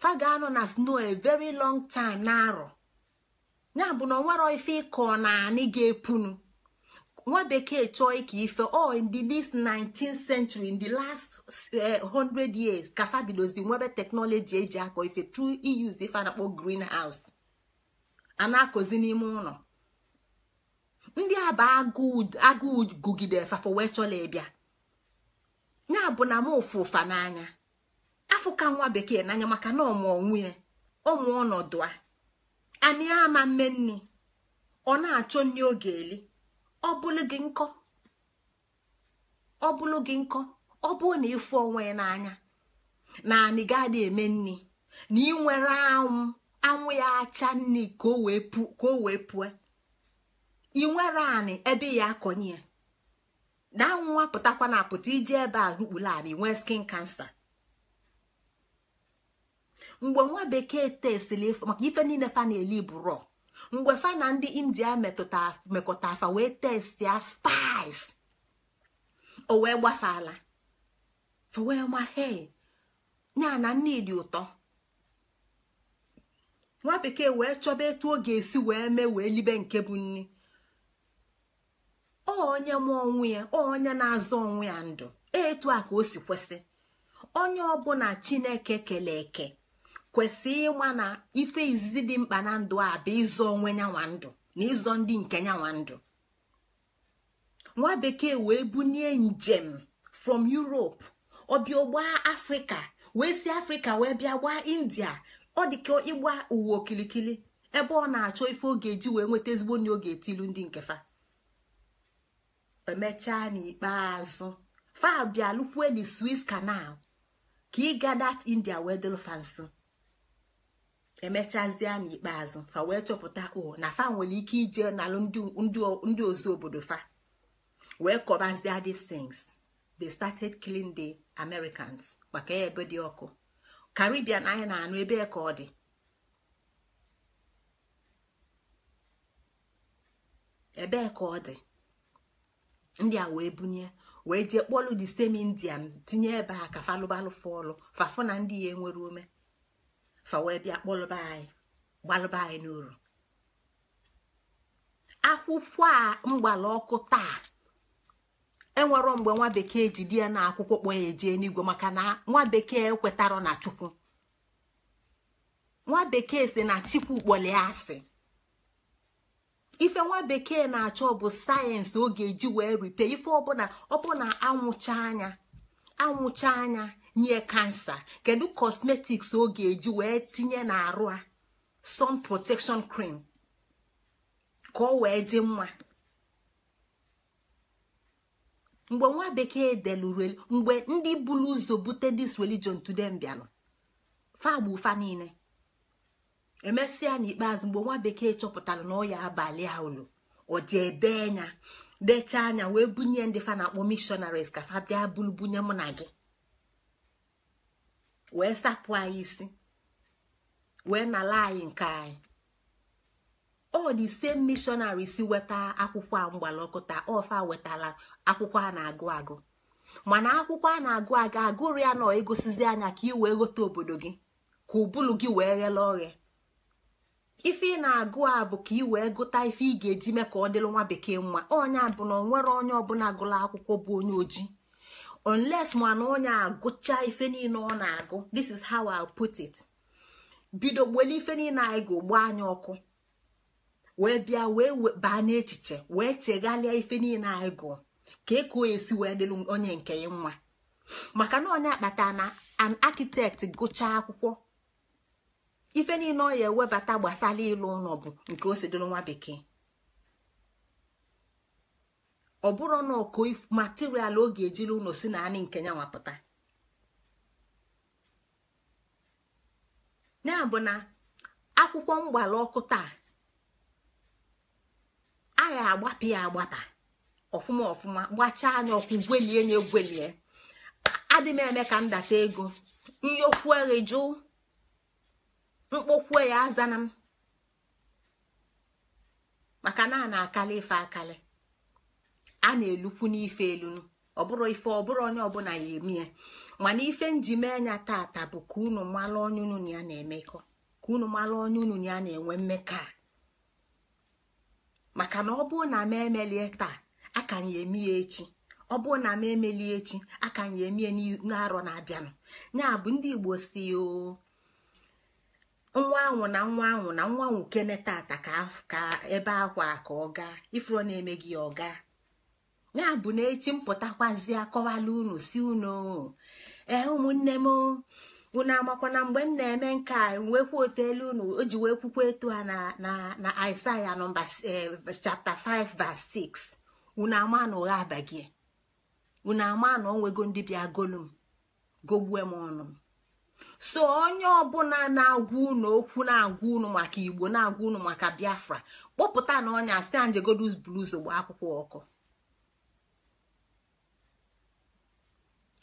faga anọ na snow a very long time na-arọ ya bụ na onwero ife ịkọ na anị ga-epunu nwa bekee chọọ ike ife ọ oh, in this 19th century in the last 100 eh, years ka fa bidozi nwebe teknọlọji e eji akọ ife through use ife a na-akpọ greenhouse a na-akọzi n'ime ụlọ ndị a bụ agụụ gugide fafa wee chọla ịbịa ya bụ na m ụfụ ụfa n'anya afọ ka nwa bekee n'anya maka na ọmụ onwe ọnọdụ a anyị ama mme nni ọ na-achọ nri oge eli ọ bụla gị nkọ ọ bụla gị nkọ ọ bụrụ na ịfụ onwe ya n'anya na anyị gaa dị eme nni na ị nwere anwụ anwụ ya acha nni ka o wee pụọ ị nwere anị ebe ya akọnye ya na nwa pụtakwa na apụta iji ebe a rukpula ala inwee skin kansa mgbe nwa bekee testiri maka ife niile fa na-eli bụrọ mgbe fa na ndị india mekọta afa wee testi ya spice o wee gbafeala wee ma he nya na nne dị ụtọ nwa bekee wee chọba etu ọ ga-esi wee mee wee libe nke bụ nni. ọ onye ma onwe ya onye na-azọ onwe ya ndụ etu a ka o si kwesị onye ọbụla chineke kele eke kwesị ịma na ife izizi dị mkpa na ndụ a bụ ịzọ onwe nyanwa ndụ na ịzọ ndị nke nyanwa ndụ nwa bekee wee bunie njem from Europe ọbịa ọgba afrịka wee si afrịka wee bịa gbaa india ọ dị ka ịgba ụwa okilikili ebe ọ na-achọ ife ọ ga-eji wee nweta ezigbo nri oge ga-etilu ndị nkefa emechaa n'ikpeazụ fabia lukweli swiss canal ka ịga dat india wee dịlụ fa nso emechazie n'ikpeazụ fa wee chọpụta o oh, na fa nwere ike ije n'alụ ndị ozu obodo fa wee kọbazie these things they started killing the americans maka ebe dị ọkụ caribbean anyị na-anụ ebe ka ọ dị ebe ka ọ dị ndị a wee bunye wee jee kpọlụ di same indian tinye ebe a ka falụbalụ fọlụ fafụ na ndị ya enwere ume fa wee bịa kpọlụba anyị gbalụba anyị n'uru akwụkwọ a mgbala ọkụ taa enwero mgbe nwa bekee ji di ya na akwụkwọ kpọ ya ejee n'igwe maka na nwa bekee ekwetara na chukwu nwa bekee si na chikwu kpọlịa asị ife nwa bekee na-achọ bụ sayensị ọ ga-eji wee ripe ife ọbụla ọbụla anwụcha anya nye kansa kedu kọsmetiks ọ ga-eji wee tinye n'arụ a sun protection cream ka ọ wee dị mma mgbe nwa bekee deluru mgbe ndị buru ụzọ bute dis religion today bịanụ fa agba ụfa niile emesịa n'ikpeazụ mgbe nwa bekee chọpụtara na ọ abalị a o ji dee anya dechaa anya wee bunye ndị fa na-akpọ missionaries ka fa bịa bulu bunye mụ na gị wee sapụ anyị isi wee nala anyị nke anyị ọ dị ise missionaries weta akwụkwọ a mgbalọkọta ọfa wetara akwụkwọ a na-agụ agụ mana akwụkwọ a na-agụ agụ agụrụ ya na egosizi anya ka ị wee ghọta obodo gị ka ụbụlụ gị wee ghele oghe ife ị na-agụ a bụ ka i wee gụta ife ị ga-eji mee ka ọ dịrị nwa bekee mma onye bụ na onwere onye ọbụla gụla akwụkwọ bụ onye ojii unless mana onye agụcha ife niile ọ na-agụ this is how I put it bido gbele ife niile anyị ga ụgbọ anya ọkụ wee bịa wee baa n'echiche wee chegharịa ife niile anyị gụọ ka e esi wee dịrị onye nke nwa. maka na onye akpata na an architect gụchaa akwụkwọ ife niile ọ ya ewebata gbasara ịlụ ụlọ bụ nke osidoro nwa bekee ọ bụrụ na ọkụ material ọ ga-ejiri ụlọ si na anyị nke ya nwapụta ya bụ na akwụkwọ mgbala ọkụ taa a agbapụ ya agbapa ọfụma ọfụma gbachaa anya ọkụ gwelie nye gwelie adị eme ka m data ego ihe mkpọkwuo ya aza na m maka na a na-akali ife akali a na-elukwu n'ife elunu ọ bụrụ ife ọ bụrụ onye ọbụla ya emie mana ife nji mee anya tata bụ ka unu mara onye unu ya na-emekọ ka unu mara onye unu ya na-enwe mmekọ maka na ọ bụrụ na m emelie taa a ka ya emi ya echi ọ bụrụ na m emelie echi a ka ya emie n'arọ na-abịanụ ya bụ ndị Igbo si o nwa ahụ na nwa ahụ na nwa ahụ kene tata ka ebe akwa ka ọ gaa ifuru na-eme gị ọ gaa ya bụ na echi mpụtakwazi akọwala unu si unu ee ụmụnne m unu amakwana mgbe m na-eme nke a nwekwa otu unu o ji wee kwukwa etu a na Aịsaịa nọmba chapta 5 vas 6 unu ama na ụgha abaghị unu ama na onwego ndị bịa golu m gogbue m ọnụ m so onye ọbụla na-agwa unu okwu na-agwa unu maka igbo na-agwa unu maka biafra kpọpụta na ọnya si anjegodus blues gba akwụkwọ ọkụ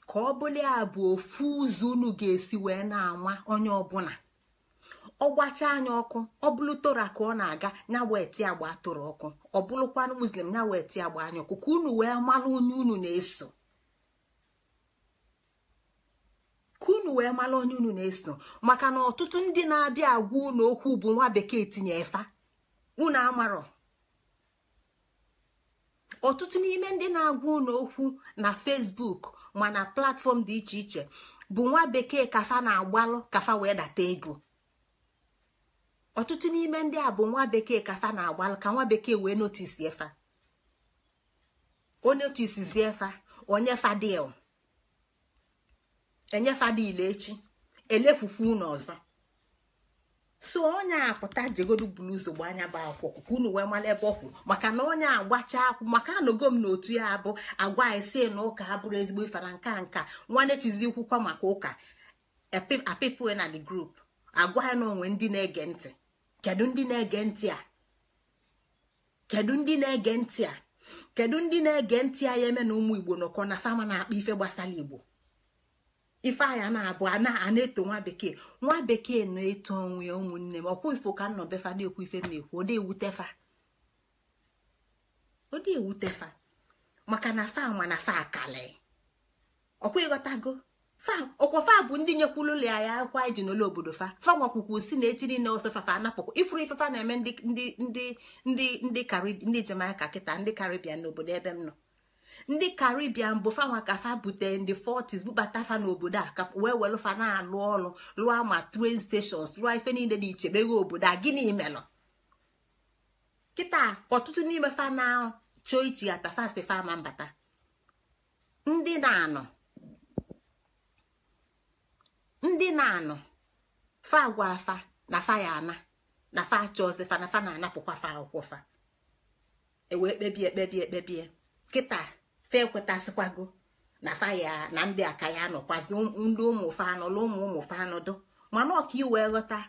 ka ọ bụla ya bụ ofu ụzọ unu ga-esi wee na-anwa onye ọbụla ọ gbacha anya ọkụ ọ bụrụ tora ka ọ na-aga ya wee agba toro ọkụ ọ bụrụkwanụ muslim ya wee agba anya ọkụ ka unu wee mara onye unu na-eso ka unu wee mara onye unu na-eso maka na ọtụtụ ndị na-abịa agwa unu okwu bụ nwa bekee tinye efa unu amarọ ọtụtụ n'ime ndị na-agwa unu okwu na fesbuk ma na platfọm dị iche iche bụ nwa bekee kafa na-agbalụ kafa wee data ego ọtụtụ n'ime ndị a bụ nwa bekee kafa na-agbalụ ka nwa bekee wee notisi efa o notisizi efa onye fadil enyefadile echi elefukwa unu ọzọ so onye apụta jegodu buru ụzọ anya bụ akwụkwọ ka unu wee mara ebe ọ kwuru maka na onye agbacha akwụ maka anọgo m n'otu ya abụ agwa ise na ụka abụrụ ezigbo ifara nka nka nwanne chizikwukwa maka ụka apịpụ na the group agwa ya na onwe ndị na-ege ntị kedu ndị na-ege ntị a kedu ndị na-ege ntị a kedu ndị na-ege ntị a ya eme na ụmụ igbo nọkọ na fama na-akpa ife gbasara igbo ifeanya na-abụ a na-eto nwa bekee nwa bekee na-eto onwe ụmụnne m ọkwụ ifo ka nnọ befa na-ekwu ife m na-ekwu ọ na-ewutefa maka na fa nwa na fa akala ọkwụ ịghọtago fa bụ ndị nyekwulu ụlọ ya akwa iji n'ụlọ obodo fa fa nwakwukwu si na echi niile ọsọ fafa anapụkwa ifuru ifefa na-eme ndị ndị ndị ndị Jamaica kịta ndị Caribbean n'obodo ebe m nọ ndị karibian bụ fanwa ka fa bute ndị 40s bubata fa n'obodo a ka wee welu fa na-alụ ọrụ lụọ ma tren stations lụọ ife niile dị iche meghe obodo a gịnị melụ kịta ọtụtụ n'ime fa na-achọ ichi atafasi fa ma mbata ndị na-anọ ndị na-anọ fa agwa afa na fa ya ana na fa achọzi fa na fa na-anapụkwa fa akwụkwọ fa ewee kpebie ekpebie ekpebie kịta fa ekwetasịkwago na faya na ndị aka ya anọkwazi um, ndị ụmụ fa anọla ụmụ ụmụ fa mana ọka iwee ghọta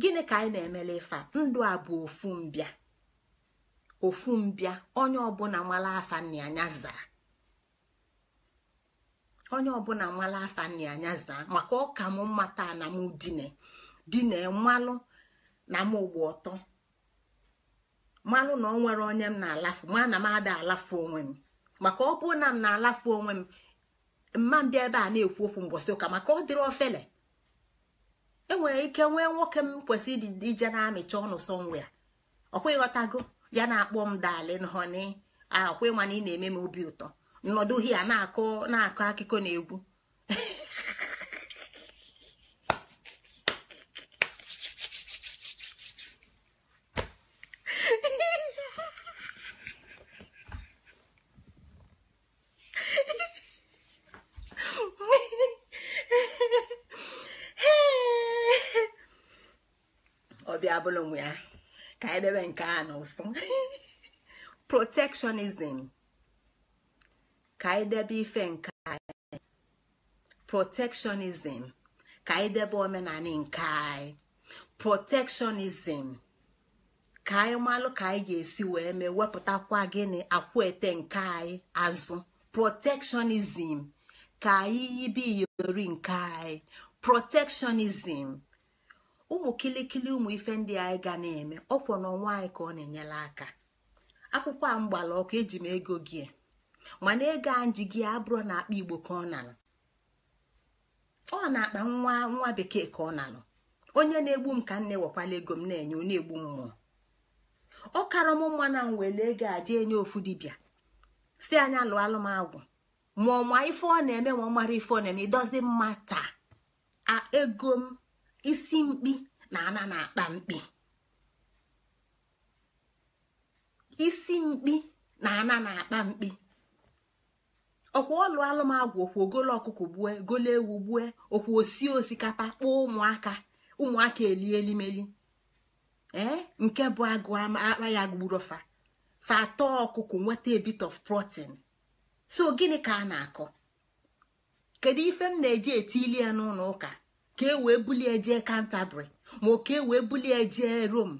gịnị ka anyị na-emele ifa ndụ a bụ ofu mbịa ofu mbịa onye ọbụla nwala afa nna anya zaa onye ọbụla nwala afa nna anya zaa maka ọka m mmata na m dine dine mmalụ na m ụgbọ ọtọ mmalụ na ọ nwere onye m na-alafu ma na m ada alafu onwe m maka ọ bụrụ na m na-alafu onwe m mma m bịa ebe a na-ekwu okwu mgbọsị ụka maka ọ dịrị ofele enwere ike nwee nwoke m kwesịrị ije na-amịcha ọnụ sọnwe ya ọkwa ghọtago ya na-akpọ m dali nhọni a ah, ịma na ị na-eme m obi ụtọ nnọdụ na na-akọ akụkọ na egwu abụla onwe ya ka anyị debe nke a n'ụsọ protectionism ka anyị debe ife nke anyị protectionism ka anyị debe omenala nke anyị protectionism ka anyị malụ ka anyị ga-esi wee mee wepụtakwa gịnị akwete nke anyị azụ protectionism ka anyị yibe iyori nke anyị protectionism ụmụ kilikili ụmụ ife ndị anyị ga na-eme ọkwọ na ọnwa anyị ka ọ na-enyere aka akwụkwọ a mgbala ọkụ eji m ego gị mana ego a ji gị abụrụ na akpa igbo ka ọ nalụ ọ na-akpa nwa nwa bekee ka ọ nalụ onye na-egbu m ka nne wekwala ego m na-enye onye egbu mmụọ ọ karọ m mma na m were ego a jee nye ofu dibịa si anya lụọ alụmagwụ ma ọma ife ọ na-eme ma ọ mara ife ọ na-eme ịdozi mma taa ego m isi mkpi na ana na-akpa mkpi isi mkpi na ana na-akpa mkpi ọkwa ọlụ alụmagwụ okwu ogolo ọkụkọ gbue golo ewu gbue okwu osi osikapa kpọọ ụmụaka ụmụaka eli elimeli ee nke bụ agụ akpa ya gburu fa fa atọ ọkụkọ nweta a bit of protein so gịnị ka a na-akọ kedu ife m na-eji eti ili ya n'ụlọ ụka ka e wee bulie jee kantabri ma ka e wee bulie jee rom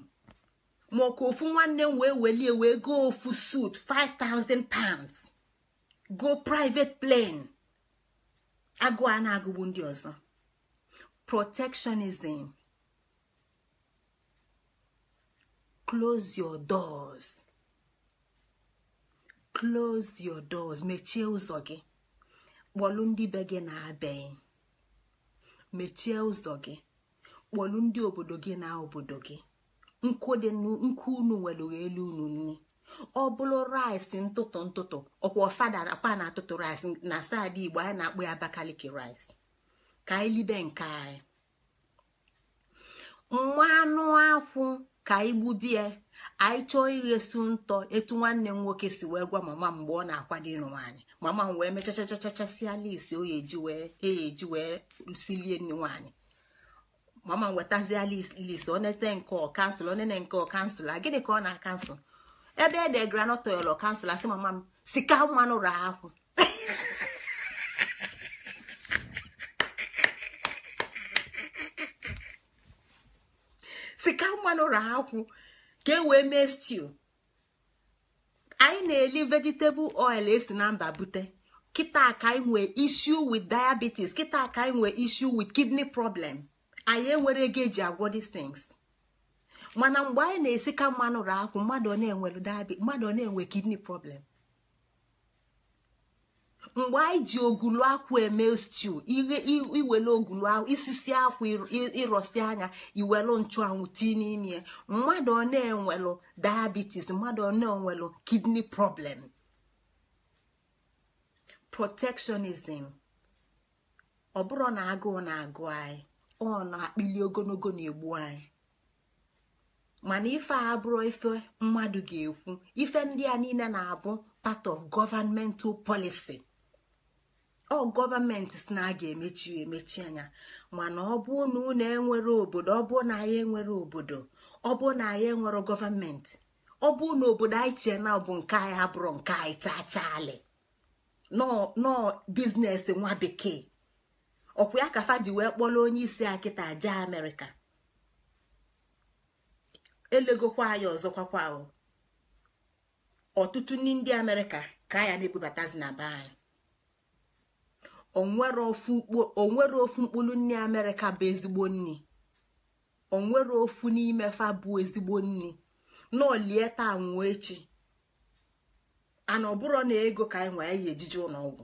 ma ka ofu nwanne m wee welie wee go ofu suit 5000 pounds go private plane agụ a na-agụgbu ndị ọzọ protectionism close your doors close your doors mechie ụzọ gị kpọlụ ndị be gị na-abịaghị mechie ụzọ gị kpọlu ndị obodo gị na obodo gị nkụ dị unu nwere elu unu nni ọ bụrụ rice ntụtụ ntụtụ ọkwa fada akpa na atụtụ rice na saadị igbo anyị na-akpọ ya abakaliki rice ka anyị libe nke anyị anụ akwụ ka anyị gbubie anyị chọọ ighesu ntọ etu nwanne m nwoke si wee gwa mama mgbe ọ na-akwado ịnụ nwaanyị mama m wee mechachachachasịa list oye eji e wee silie nne nwaanyị mama m wetazie list onete nke ọ kansụl onene nke ọ kansụl a gịnị ka ọ na-akansụl ebe e degara nọtọyọlọ kansụl asị mama m sika mmanụ raa akwụ sika mmanụ raa akwụ ka e wee mee stew anyị na-eli vegetable oil esi na mba bute kịta ka anyị nwee issue with diabetes kịta ka anyị nwee issue with kidney problem anyị enwere ego eji agwọ these things mana mgbe anyị na esika ka mmanụ akwụ mmadụ ọ na-enwe kidney problem mgbe anyị ji ogulu akwụ eme stew iwele ogulu isisi akwụ ịrọsi anya iwelu nchụanwụ tii n'ime mmadụ ọ na-enwelu diabetes mmadụ ọ na-enwelu kidney problem protectionism ọ bụrụ na agụụ na-agụ anyị ọ na-akpịli ogologo na-egbu anyị mana ife a abụrụ ife mmadụ ga-ekwu ife ndị a niile na-abụ part of governmental policy. ọ gọọmenti si na a ga-emechi emechi anya mana ọ bụ na unu enwere obodo ọ bụ na anyị enwere obodo ọ bụ na anyị enwere gọọmenti ọ bụ na obodo anyị chee na bụ nke anyị abụrụ nke anyị chachalị nọ biznesi nwa bekee ọkwa ya ka fadi wee kpọrọ onye isi akịta aja amerịka elegokwa anyị ọzọkwakwa ọtụtụ ndị amerịka ka ya na-ebubatazi na be anyị onwere ofu mkpụrụ nne amerịka bụ ezigbo nri onwere ofu n'ime fa bụ ezigbo nri n'olie taa nwụọ echi ana ọbụrụ na ego ka anyị nwee anyị ejije ọgwụ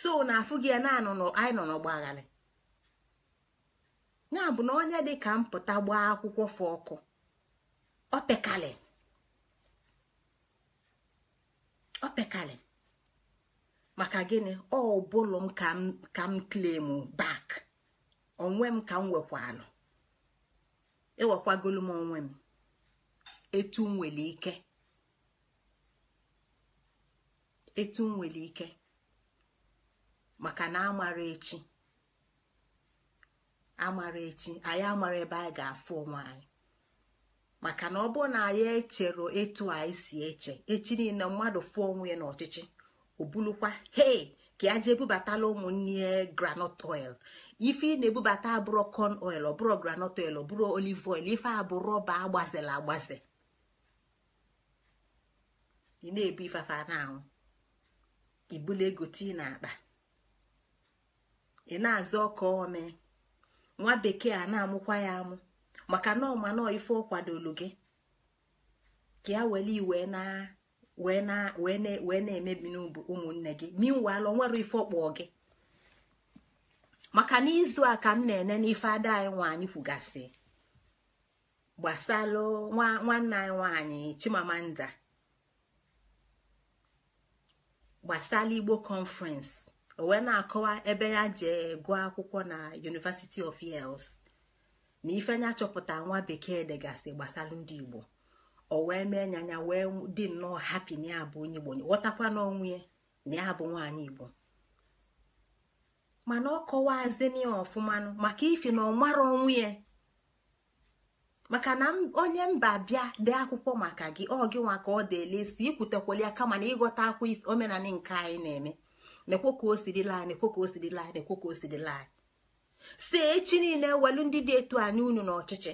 so na afụ gị na anyị nọ n'ọgba ya na onye dị ka mpụta gbaa akwụkwọ fụ ọkụ maka gịnị ọ m ka m klemu bak onwe m ka m wekwalụ ewekwagolu m onwe m etu m nwere ike etu m nwere ike maka na amara echi amara echi anyị amara ebe anyị ga-afụ onwe anyị maka na ọ bụrụ na anyị echere etu anyị si eche echi niile mmadụ fụọ onwe ya n'ọchịchị o bulukwa ka ya jee bubatala ụmụnne granọt oil ife ị na-ebubata abụrọ corn oil ọbụrọ granọt oil ọbụrọ olive oil ife abụrụ rọba agbazela agbaze ị na-ebu ifefe na ibula ego tii na akpa ị na-azụ ọka ome nwa bekee a na-amụkwa ya amụ maka na ọmanọ ife ọ kwadolu gị ka ya were iwe na wee na-emebi ụmụnne gị minwal onwere ife ọkpọ gị maka n'izu a ka m na-ene n'ife ada anyị nwaanyị kwugasị gbasalụ nwanne anyị nwaanyị chimamanda gbasala igbo conference o wee na-akọwa ebe ya jee gụọ akwụkwọ na University of Wales na ife nya chọpụta nwa bekee degasị gbasalụ ndị igbo o wee mee nyanya anya wee dị nnọọ hapi na ya bụ onye igbo ghọtakwa n'onwe ya na ya bụ nwaanyị igbo mana ọ kọwaazin ya ọfụmanụ maka ifi na ọmara onwe ya maka na onye mba bịa dee akwụkwọ maka gị ọ gị nwa ka ọ deelesi ikwutekwala ya kama na ịghọta akwa omenala nke anyị na-eme nekwo ka o laa na nekwo ka o sirila anyị nekwo ka o si echi niile welu ndị dị etu anyị unu n'ọchịchị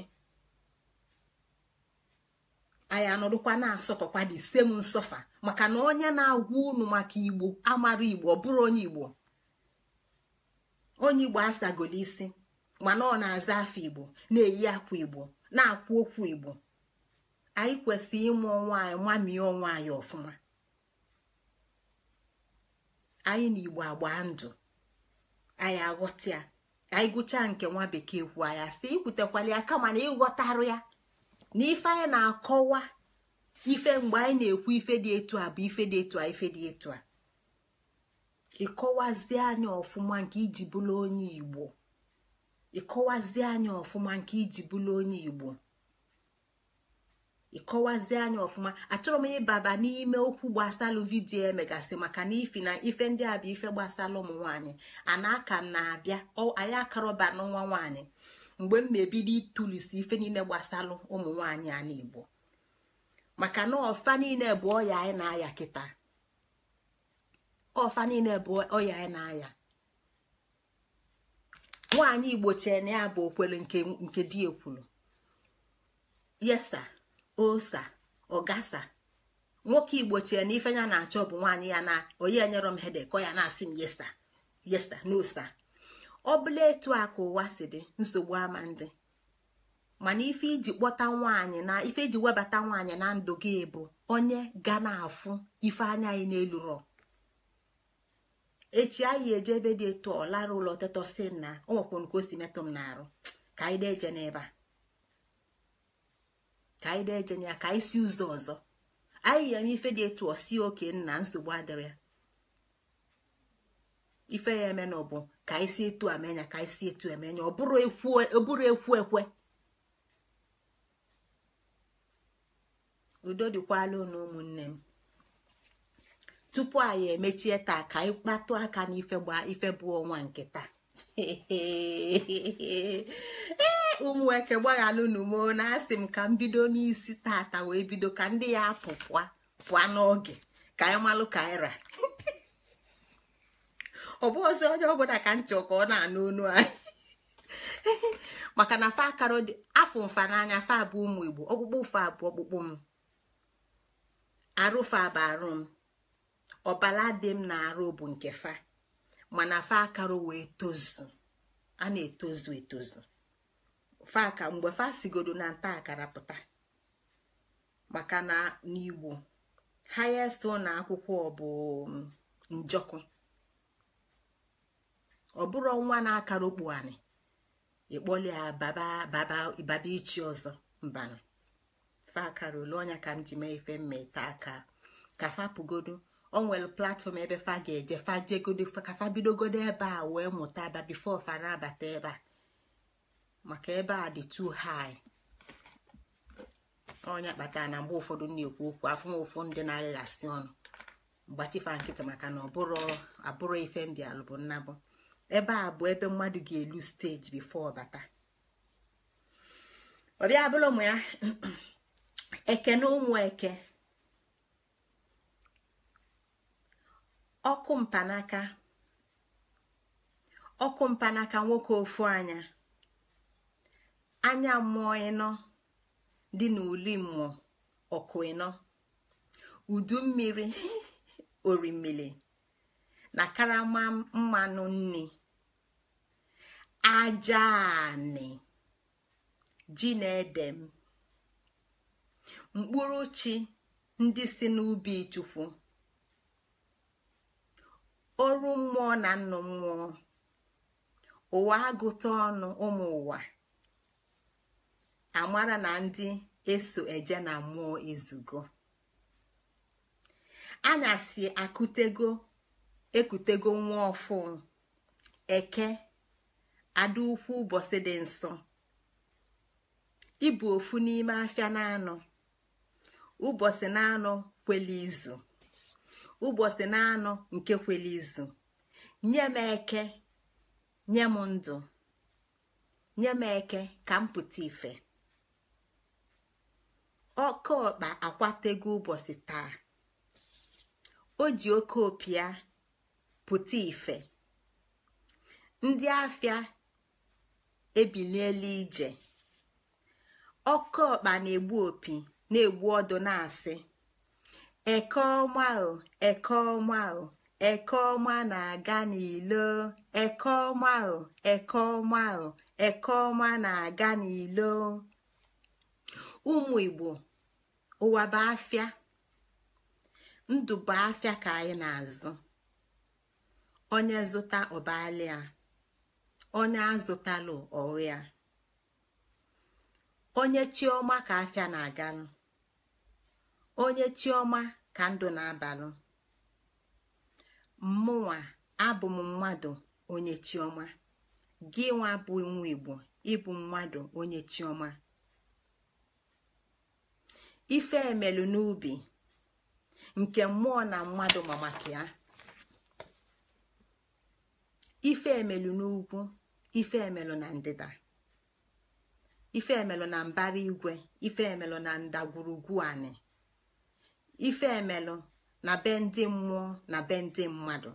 anyị anọdụkwa na-asọfakwa the same nsọfa maka na onye na-agwa unu maka igbo amara igbo ọ bụrụ onye igbo onye igbo asagolo isi mana ọ na-aza afọ igbo na-eyi akwa igbo na-akwụ okwu igbo anyị kwesịrị ịmụ onwe anyị mamie onwe anyị ọfụma anyị na igbo agba ndụ anyị aghọta ya anyị gụchaa nke nwa bekee kwu anya si ikwutekwala ya kama na ịghọtarụ ya na anyị na-akọwa ife mgbe anyị na-ekwu ife dị etu a bụ ife dị etu a ife dị etu a ịkọwazie anya ọfụma nke iji bụrụ onye igbo ịkọwazie anya ọfụma nke iji bụrụ onye igbo ịkọwazi anya ọfụma achọrọ m ịbaba n'ime okwu gbasalụ vidiyo emegasị maka na ifi na ife ndị a bụ ife gbasara ụmụ nwaanyị ana aka na-abịa anyị akarọba n'nwa nwanyị. mgbe m ebido ịtụlisi ife niile gbasalụ ụmụ nwaanyị a Igbo maka na ọfa niile bụ ọya na-aya kịta ọfa niile bụ ọya anyị na-aya nwaanyị igbo na ya bụ okwele nke di ekwuru yesa osa ọgasa nwoke igbo chee na ife ya na-achọ bụ nwaanyị ya na onye nyere m hede ọ ya na-asị m yesa yesa na osa ọ bụla etu a ka ụwa si dị nsogbu ama ndị mana ife iji kpọta nwaanyị na ife iji webata nwaanyị na ndụ gị bụ onye ga na-afụ ife anya anyị n'elu rọ echi anyị eje ebe dị etu ọ lara ụlọ ọtọtọ si na o nwekwara ka o si metụ m na arụ ka anyị deje n'ebe a ka anyị deje na ya ka anyị si ụzọ ọzọ anyị ya eme ife dị etu ọ si oke nna nsogbu adịrị ya ife ya eme na ọbụ ka anyị si etu amenya ka anyị si etu emenya ọ bụrụ ekwu ekwe udo dịkwala unu ụmụnne m tupu anyị emechie taa ka anyị kpatụ aka n'ife gbaa ife bụ ọnwa nke taa ụmụ eke gbaghalụ n'umo na asị m ka m bido n'isi tata wee bido ka ndị ya apụ pụa n'oge ka anyị malụ ka anyị ra ọ bụ ọzọ onye ọbụla ka m chọ ka ọ na-anụ onu anyị maka na fa dị afọ mfa n'anya fa bụ ụmụ igbo ọkpụkpụ fa bụ ọkpụkpụ m arụ fa bụ arụ m ọbala dị m na arụ bụ nke fa mana fa akara wee tozu a na-etozu etozu fa aka mgbe fa sigodo na nta akara pụta maka na n'igbo highest na akwụkwọ bụ um, njọkụ ọ bụrụ nwa na-akara okpu anị ịkpọli ya baba baba ichi ọzọ mbanụ fa akara ole ọnya ka m ji mee ife mmeta aka ka fa pụgodu o nwere platfọm ebe fa ga-eje fa jegodo ka fa bidogodo ebe a wee mụta aba bifo fa abata ebe a maka ebe a dị too high onye kpatara na mgbe ụfọdụ na-ekwu okwu afụma ụfụ ndị na-aghịghasị ọnụ mgbachifa nkịtị maka na ọ bụrụ abụrụ ife mbịalụ bụ nnabụ ebe a bụ ebe mmadụ ga-elu steji bifo ọbata ọbịa bụla ụmụ ya eke na ụmụ eke ọkụ mpanaka ọkụ mpanaka nwoke ofu anya anya mmụọ ịnọ dị n'ụlọ mmụọ ọkụ ịnọ udu mmiri na karama mmanụ nni aja ji na ede m mkpụrụ chi ndị si n'ubi chukwu oru mmụọ na nnụ mmụọ ụwa agụta ọnụ ụmụ ụwa amara na ndị eso eje na mmụọ izugo anyasị akụtego ekutego nwa ọfụ eke ada ukwu ụbọchị dị nsọ ịbụ ofu n'ime afịa na-anọ ụbọchị na-anọ kwela izu ụbọchị na-anọ nke kwela izu nye m eke nye m ndụ nye m eke ka m pụta ife oke ọkpa akwatego ụbọchị taa o ji oke opi ya pụta ife ndị afịa ebiliela ije ọkụ ọkpa na-egbu opi na-egbu ọdụ na-asị eke ọma ahụ eke ọma ahụ eke ọma na-aga n'ilo eke ọma ahụ eke ọma na-aga n'ilo ụmụ igbo ụwa bụ afịa ndụ bụ afịa ka anyị na-azụ onye zụta ọbalịa onye azụtalụ ọya onye chioma ka afịa na-agalụ onye chioma ka ndụ na-abalụ mụnwa abụ m mmadụ onye chioma gị nwa bụ nwa igbo ịbụ mmadụ onye chioma ife emelu n'ubi nke mmụọ na mmadụ ma maka ya ife emelu n'ugwu ife na ndịda ife emelu na mbara igwe ife emelu na ndagwurugwu anị ife emelu na be ndị mmụọ na be ndị mmadụ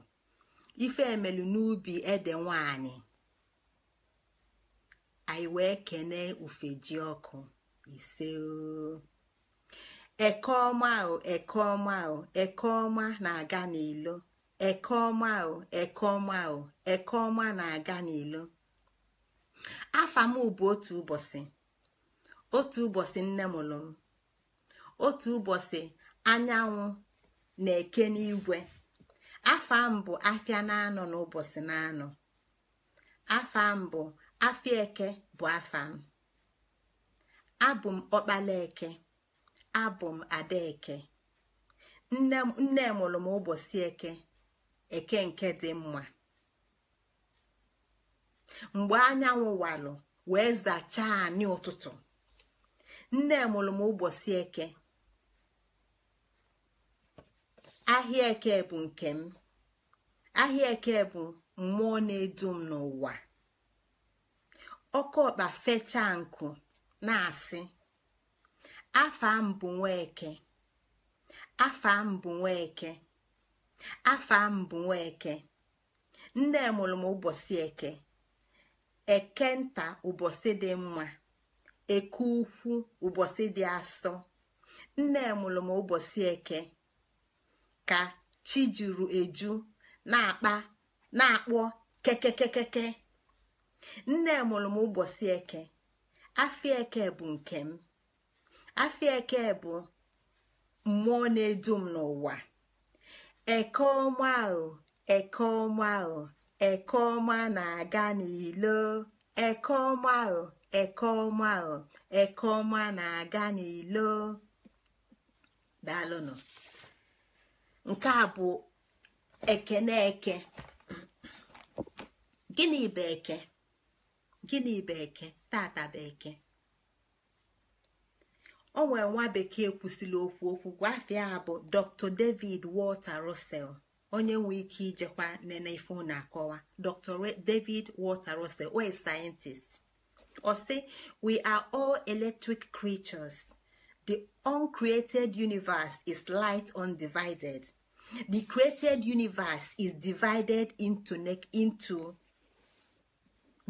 ife emelu n'ubi ede nwanyị anyị wee kenee ufe ji ọkụ ise eke ọma ahụ ọma ahụ eke ọma na-aga n'ilo eke ọma ahụ na-aga n'ilo afa bụ otu ụbọchị otu ụbọchị nne mụrụ otu ụbọchị anyanwụ na-eke n'igwe afa m bụ na-anọ n'ụbọchị na-anọ afa bụ eke bụ afa m abụ m ọkpala eke abụ m ada eke nne mụrụ m ụbọchị eke eke nke dị mma mgbe anyanwụ walụ wee zachaa anyị ụtụtụ nne mụrụ m ụbọchị eke ahịa eke bụ nke m ahịa eke bụ mmụọ na-edu m n'ụwa ọkọọkpa fechaa nkụ na-asị Afọ mbụ bụ nwa eke afọ mbụ bụ nwa eke. afa mbụ nwoke, nne mụrụ m ụbọchị eke eke nta ụbọchị dị mma eke ukwu ụbọchị dị asọ nne mụrụ m ụbọchị eke ka chi juru eju na-akpa na-akpọ kekekekeke nne mụrụ m ụbọchị eke afịa eke bụ nke m afịa eke bụ mmụọ na-edu m n'ụwa eke ọma ahụ eke ọma ahụ eke ọma na-aga n'ilo eke ọma ahụ eke ọma ahụ eke ọma na-aga n'ilo nke a bụ ekeneke eke gịnị bụ eke gịnị bụ eke tata bụ eke O nwere nwa bekee kwụsịrị okwu okwu gwafịa bụ dr david walter russell onye nwe ike ijekwa nene ife na-akọwa dr david walter russell o scientist ọ sị we are all electric creatures the uncreated universe is light undivided the created universe is divided into, into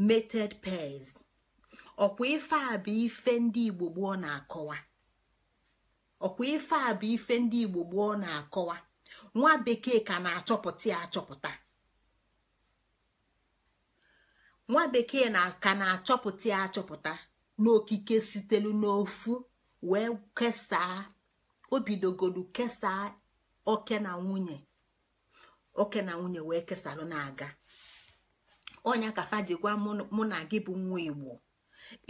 mated pairs ọkwa ife a bụ ife ndị igbo gboo na-akọwa ọkwa ife a bụ ife ndị igbo gboo na-akọwa nwa bekee ka na-achọpụta ya achọpụta nwa bekee ka na-achọpụta ya achọpụta n'okike sitelu n'ofu wee kesaa obidogodu kesaa oke na nwunye oke na nwunye wee kesalụ na-aga ọnya ka fa gwa mụ na gị bụ nwa igbo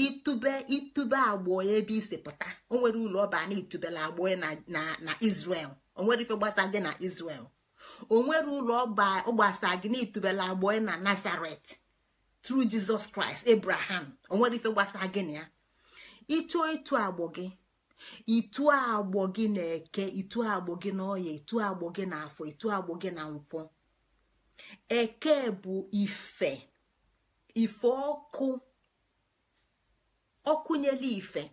itube itube agbụọ ebe isi pụta o nwere ụlọ ọba na itubela agbụọ na Israel o nwere ife gbasa gị na Israel o nwere ụlọ ọba ọgbasa gị na itubela agbụọ na Nazaret tru jizọs kraịst ebraham onwere nwere ife gbasa gị na ya ịchọ ịtụ agbụ gị itu agbọ gị na-eke ịtụ agbọ gị na ọya ịtụ agbọ gị na afọ ịtụ agbọ gị na nkwọ eke bụ ife ife ọkụ ọkụnyela ife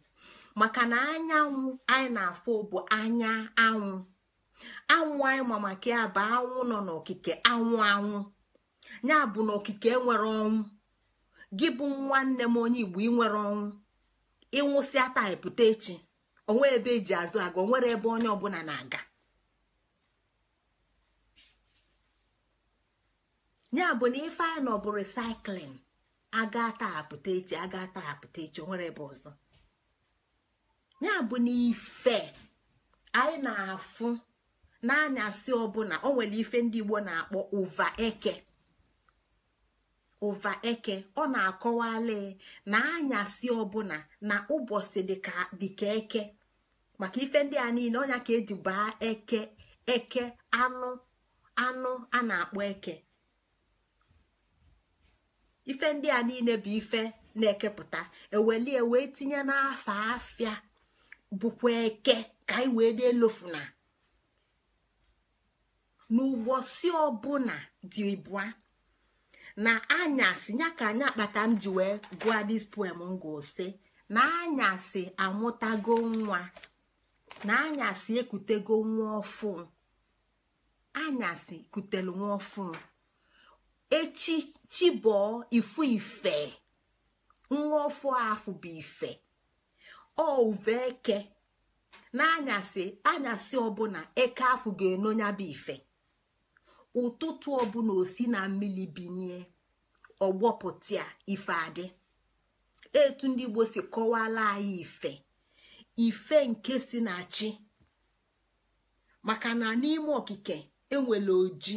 maka na anyanwụ anyị na-afụ bụ anya anwụ anwụ anyị ma maka ya bụ anwụ nọ n'okike anwụ anwụ ya bụ na okike nwere ọnwụ gị bụ nwanne m onye igbo inwere ọnwụ ịnwụsịa taa pụta echi onwe ebe eji azụ aga nwere ebe onye ọbụla na-aga ya bụ na ife anyị nọ bụ recycling aga taa apụta echi aga taa apụta echi onwere ebe ọzọ ya bụ n'ife anyị na-afụ n'anyasị ọbụla o nwere ife ndị Igbo na-akpọ ụva eke ụva eke ọ na-akọwali na anyasị ọbụla na ụbọchị dịka eke maka ife ndị a niile ọnya ka eji eke eke anụ anụ a na-akpọ eke ife ndị a niile bụ ife na-ekepụta ewelie wee tinye n'afọ afịa bụkwa eke ka anyị wee dị elofuna si ọbụla dị ịbụa na anyasị ya ka anyị kpata m ji wee gụọ dis poem ngosi na anyasị amụtago nwa na anyasị ekutego nwa ọfụ anyasị kutelu nwa ọfụ echi chibọọ ifu ife nwa ofu afụ bụ ife ọ eke n'anyasị anyasị ọbụla eke afụ ga-enonya bụ ife ụtụtụ ọbụla osi na mmiri binie ọgbọpụta ife adị etu ndị igbo si kọwala anyị ife ife nke si na chi maka na n'ime okike enwere oji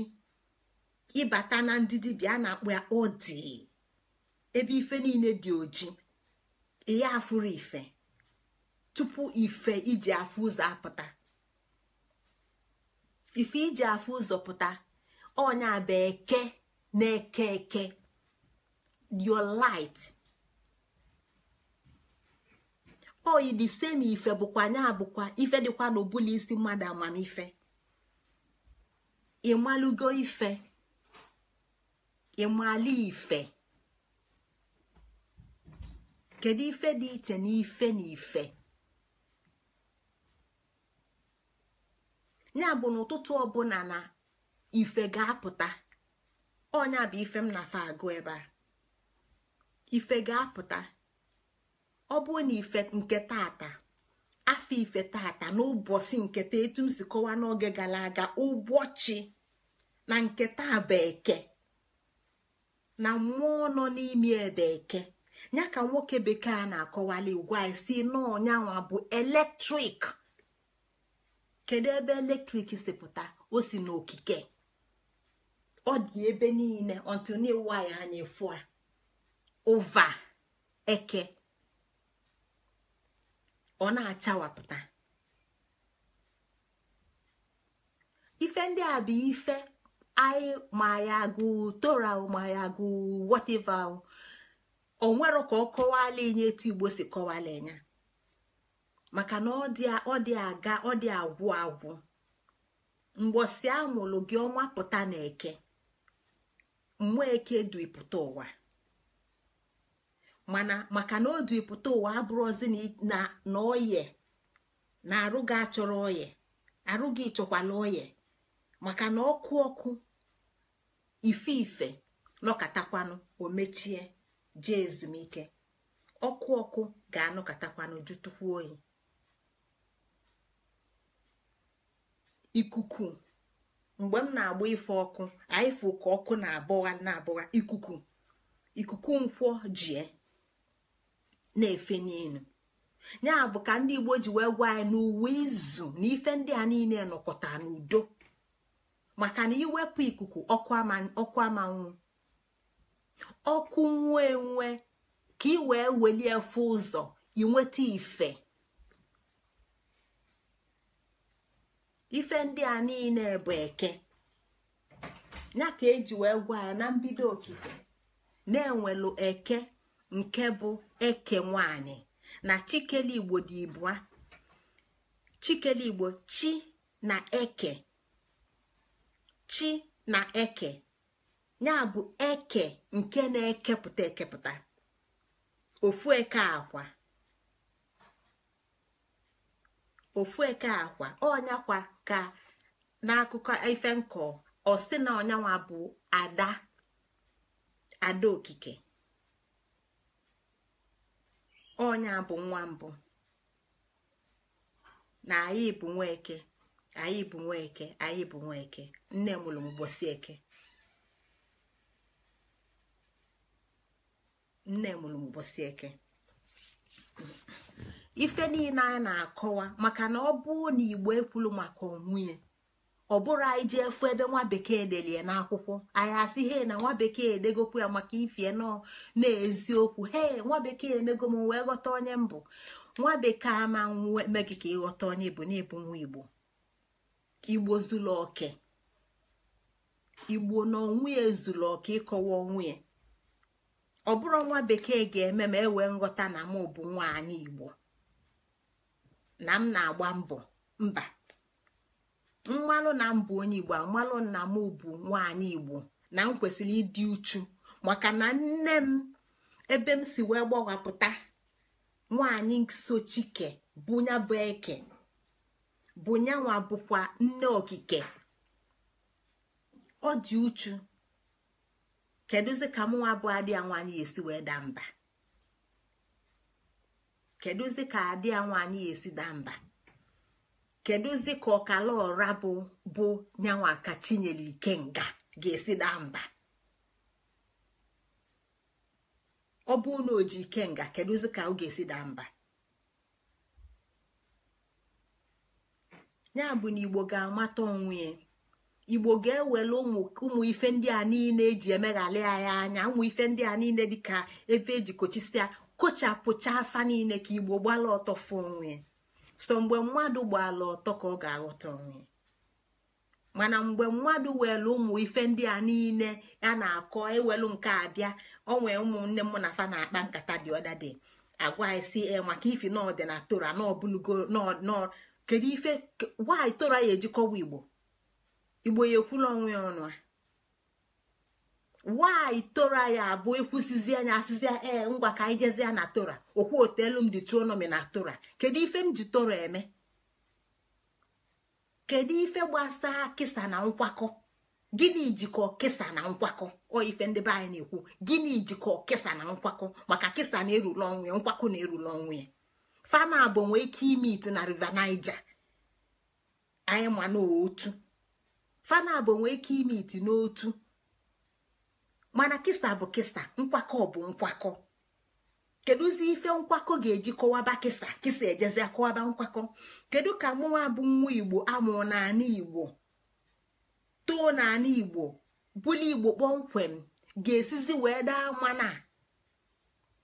ịbata na ndị dibịa a na akpụ ya odi ebe ife niile dị oji ihe afụrụ ife tupu ife iji afụ ụzọ apụta ife iji afụ ụzọ pụta onye bụ eke na-eke eke your light oyi di semi ife bụkwa nya abụkwa ife dịkwa n'obula isi mmadụ amamife ịmalụgo ife ịmala ife kedu ife dị iche na ife na ife ya bụ ụtụtụ ọbụla na ife ga-apụta ọnya bụ ife m na agụ ebe a ife ga-apụta ọ bụ na ife nke tata afọ ife tata ụbọchị nketa etu m si kọwaa n'oge gara aga ụbọchị na nke ta bụ eke na mmụọ nọ n'ime ebe eke ya ka nwoke bekee a na-akọwali ugwu anyị si n'ọnyanwa bụ eletrik kedu ebe eletrik si pụta o si n'okike ọ dị ebe niile ọtụniwa ya anya ụva eke ọ na-achawapụta ife ndị a bụ ife anyị ma ya gụ tora ma ya gụ whatever onwero ka ọ kọwala enye etu igbo si kọwala enya maka na ọ dị aga ọ dị agwụ agwụ mgbọsi amụlụ gị ọma pụta na eke mmụọ eke duipụta ụwa mana maka na o duipụta ụwa abụrụzi na oye na arụ gị achọrọ oye arụ gị chọkwala oye maka na ọkụ ọkụ ife ife nọkatakwanụ o mechie jee ezumike ọkụ ọkụ ga-anọkatakwanụ jụtụkwu oyi ikuku mgbe m na-agba ife ọkụ anyị fụ ka ọkụ na-abụwa na-abụwa ikuku ikuku nkwọ jie na-efe n'elu ya bụ ka ndị Igbo ji wee gwa anyị n'uwe izu na ife ndị a niile nọkọta n'udo maka na iwepụ ikuku ọkụ amanwụ ọkụ nwuo enwe ka ị wee welie fụ ụzọ inweta ife ife ndị a niile bụ eke ya ka eji wee gwa ya na mbido okike na-enwelu eke nke bụ eke nwanyị na chikele igbo dị ibụa chikele igbo chi na eke chi na eke ya bụ eke nke na-ekepụta ekepụta ofu eke akwa ofu eke akwa ọnyakwa ka n'akụkọ ife nkọ osi na onyanwa bụ ada ada okike onya bụ nwa mbụ na anyị bụ nwa eke. anyị bụ nwa eke anyị bụ nwa eke nne mụrụ m ụbọchị eke nne mụrụ m ụbọchị eke ife niile anyị na-akọwa maka na ọ bụ na igbo ekwulu maka onwunye ọ bụrụ anyị ji efu ebe nwa bekee delie n'akwụkwọ anyị asị he na nwa bekee edegokwu ya maka ifie nọ na-eziokwu he nwa bekee emego m wee ghọta onye mbụ nwa bekee ama megị ka ịghọta onye bụ na-ebu nwa igbo igbo zuru oke igbo na onwe ya zuru oke ịkọwa onwe ya ọ bụrụ nwa bekee ga-eme ma ewee nghọta na mụ bụ nwaanyị igbo na m na-agba mbọ mba mmanụ na m bụ onye igbo amalụ na m bụ nwaanyị igbo na m kwesịrị ịdị uchu maka na nne m ebe m si wee gbawapụta nwaanyị sochike bụ nya bụ eke bụ nyanwa bụkwa nne okike ọ dị uchu kedụzi ka mụnwa bụ adị anwanyị esi wee daa mba kedụzi ka adị anwanyị esi daa mba kedụzi ka ọkala ọra bụ bụ nyanwa ka chinyere nga ga-esi daa mba ọ bụ na ike nga kedụzi ka ọ ga-esi daa mba ya bụ na igbo ga-amata onwe ya igbo ga-ewere ụmụ ife ndị a niile eji emeghalị anyị anya ụmụ ife ndị a niile dịka ebe eji kochisia kochapụcha afa niile ka igbo gbala ọtọ fụ onwe so mgbe mmadụ gbala ọtọ ka ọ ga-aghọta onwe mana mgbe mmadụ were ụmụ ife ndị a niile ya na-akọ ewelu nke abịa ọ nwee ụmụnne mụ na fa na-akpa nkata dị ọda dị agwa isi e maka ifi na ọdị na na ọbụlugo kedu ife nwaanyị toro ya ejikọwa igbo igbo ya ekwula onwe ya ọnụ nwanyị tora anyị abụ ekwusizi anya asịzi ee eh, ngwa ka anyị jezie na tora okwu otelu m dị tuonomi na tora kedu ife m ji toro eme kedu ife gbasaa kịsa na nkwakọ gịnị jikọ kịsa na nkwakọ ọ ife ndị be anyị na-ekwu gịnị jikọ kịsa na nkwakọ maka kịsa na-erule onwe nkwakọ na-erule onwe ya fana abụ nwee ike ime ite na river Niger anyị ma n'otu fana nwee ike n'otu mana kisa bụ kisa nkwakọ bụ nkwakọ kedụzi ife nkwakọ ga-eji kọwaba kisa kisa ejezi kọwaba nkwakọ kedu ka mụnwa bụ nwa igbo amụ naanị igbo too naanị igbo bụli igbo kpọmkwem ga-esizi wee daa mana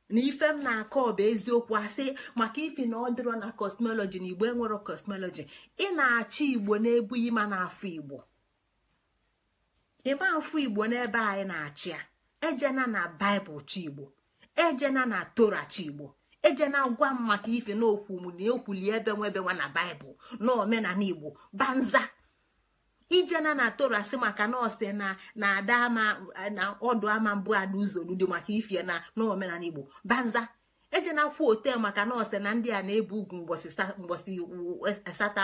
na ife m na-akọ bụ eziokwu asị maka ifi na ọ dịrọ na kosmọlọji na igbo enwero kosmoloji ị na-achị igbo n'ebu ịma na-afụ igbo ịma afọ igbo n'ebe anyị na-achị ya ejena na baịbụl chigbo igbo ejena na tora chi igbo ejena gwa m maka ife na okwu m na ebe nwa ebe nwa na baịbụl na omenala igbo banza ijena na tora maka nọọsụ na na ada ama na ọdụ ama mbụ ada uzolu dị maka ifie na n'omenala igbo banza ejena kwu otel maka nọọsụ na ndị a na-ebu ugwu mgbọsị asatọ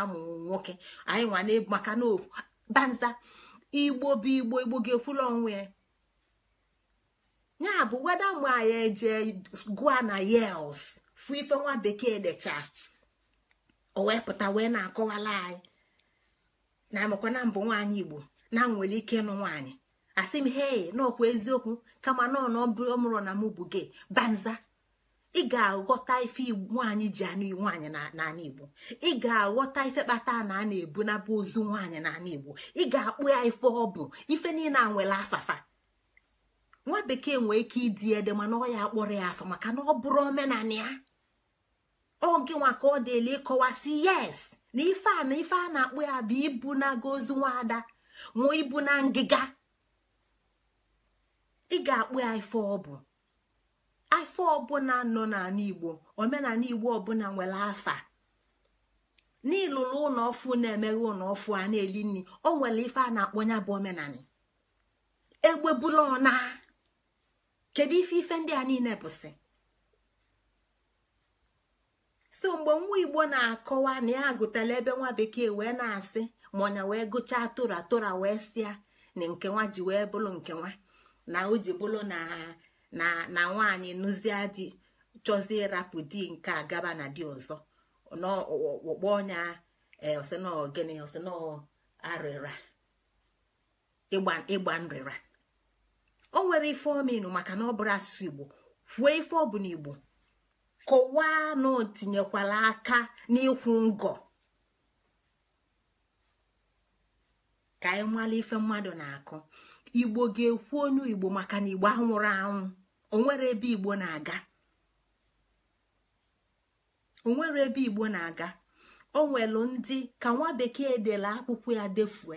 amụ nwoke anyị nwa na-ebu maka n'ofu banza igbo bụ igbo igbo ga-ekwula onwe ya ya bụ weda mgbe anyị eje gụa na yels fụ ife nwa bekee decha o wee pụta wee na-akọwala anyị na amakwa na mbụ nwaanyị igbo na nwere ike ịnụ nwaanyị asị m na n'ọkwa eziokwu kama nọọ ọmụrọ na mụ bụ gị banza ị ga-aghọta ife nwaanyị ji anụ nwaanyị n'ala igbo ị ga-aghọta ife kpata na a na-ebu nabụ ozu nwaanyị n'ala igbo ị ga-akpụ ya ife ọ bụ ife niile a nwere afafa nwa bekee nwee ike ịdị ede mana ọ ya akpọrọ ya afa maka na ọ bụrụ omenala ya oge nwa ka ọ dịle ịkọwasị yes na ife a na ife a na-akpụ ya bụ ibu na aga ozu nwaada nwa ibu na ngịga ị ga-akpụ ya ife ọ bụ afọ ọbụla nọ n'ala igbo omenala igbo ọbụla nwere afa n'ịlụrụ ụlọ ọfụ na-emeghe ụlọ ọfụ a na-eli nri o nwere ife a na-akpọ ya bụ omenala egbebula ọna kedu ife ife ndị a niile bụsị so mgbe nwa igbo na-akọwa na ya agụtala ebe nwa bekee wee na-asị ma ọnya wee gụchaa tora tora wee sịa na nke nwa ji wee bụrụ nke nwa na o ji bụrụ na na nwaanyị nụzie chọzie ịrapụ di nke a gaba na di ọzọ n'ọkpụkpọ ọnya osino eh, gịnị osino ịgba nrịra o nwere ife ominu maka na ọ bụrụ asụsụ igbo kwue ife ọ bụ na igbo kọwaa na o tinyekwala aka n'ịkwụ ngọ ka anyị nwale ife mmadụ na-akụ igbo ga-ekwu onye igbo maka na igbo anwụrụ anwụ onwere ebe igbo na-aga onwere ebe igbo na-aga o nwelu ndị ka nwa bekee dere akwụkwọ ya defue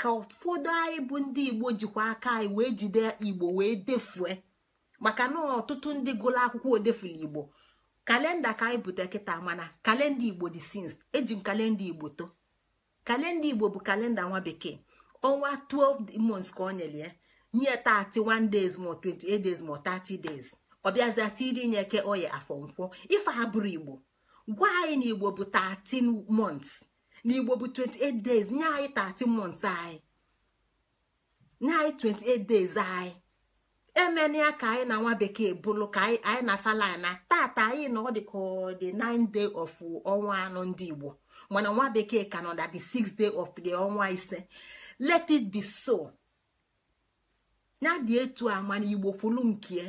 ka ụfọdụ anyị bụ ndị igbo jikwa aka anyị wee jide igbo wee defue maka na ọtụtụ ndị gụrụ akwụkwọ odefula igbo kalenda ka anyị bute kịta mana kalenda igbo dị sins eji m kalenda igbo to kalenda igbo bụ kalenda nwa bekee ọnwa 12 months ka ọ nyere ya nye 31 days ma 28 days ma 30 days ọ bịazia tiri nye ke oya afọ nkwọ ife ha bụrụ igbo gwa anyị na igbo bụ 13 months na igbo bụ 28 days nye anyị 13 months anyị nye anyị 28 days anyị emenịa ka anyị na nwa bekee bụlụ ka anyị na falana tata anyị na ọ dị ka ọ dị 9 day of ọnwa anọ ndị Igbo mana nwa bekee ka nọ na the 6 day of the ọnwa ise let it be so ya dị etu a mana Igbo kwulu nke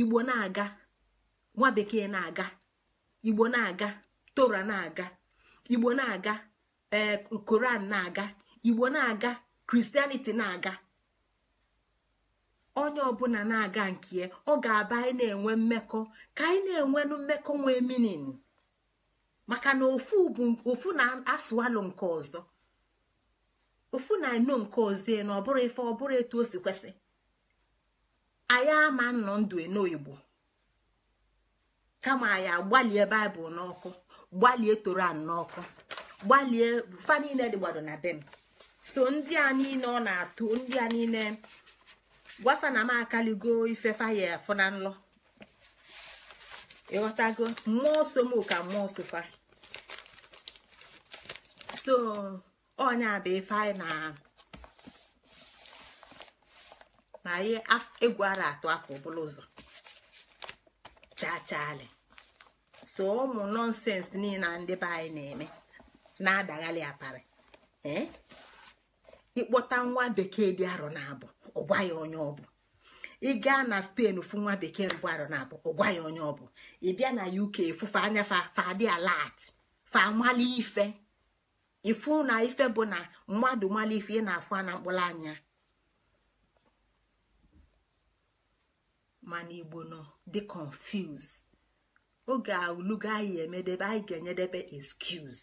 Igbo na-aga nwa bekee na-aga Igbo na-aga tora na-aga Igbo na-aga ee eh, Koran na-aga Igbo na-aga Christianity na-aga onye ọbụla na-aga nke ọ ga-aba anyị na-enwe mmekọ ka anyị na-enwenụ mmekọ nwee minin maka na ofu na-asụalụ nke ọzọ ofu na-eno nke ọzọ na ọ bụrụ ife ọ bụrụ etu o si kwesị anyị ama nnọ ndụ eno kama anyị agbalie baịbụl n'ọkụ gbalie toran n'ọkụ gbalie fa niile dịgbado so ndị a niile ọ na-atụ ndị a niile gwafa na m akaligo ife faya afọ na nlọ ịghọtago mmụọ so m ka mmụọ sofa so onye bụ ife anyị na na ihe egwu atụ afọ ọbụla ụzọ chachali so ụmụ nọnsens niile ndị be anyị na-eme na-adaghalị apari eh? ịkpọta nwa bekee dị arọ na abụ ọgwa ya onye ọ bụ ị gaa na spen fụ nwa bekee mbụ arọ na abụ ọgwa ya onye ọ bụ ị bịa na uk fụfe anya fadị alat fa amali ife ịfụ na ife bụ na mmadụ mali ife ị na-afụ na mkpụrụ anya mana igbo nọ dị confuse oge alugo anyị emedebe anyị ga-enyedebe excuse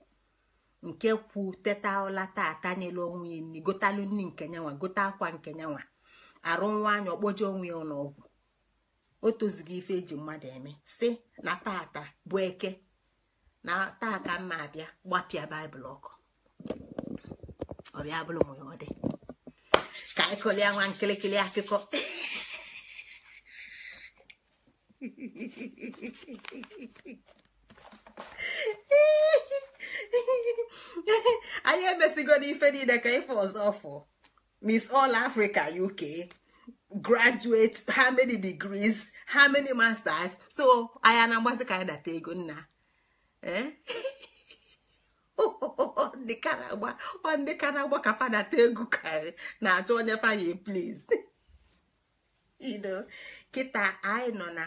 nke kwu teta ọla taa onwe ya nri gotalụ nke nyanwa gote akwa nke nyanwa arụ nwa anya onwe ya n'ọgwụ o ife eji mmadụ eme si na tata bụ eke na taa ka mma abịa gbapịa baịbụl ọkụ ọbịa ọ ka anyị nwa nkịlịkịlị akụkọ anyị emesigo n'ife niile ka ife ọzọ fụ miss all africa uk graduate how many degrees how many masters so anya na-agbazi ka anyị data ego nna eh? ndị karagba ọ ndị karagba ka fa ego ka na-achọ onye fanye please you kita anyị nọ na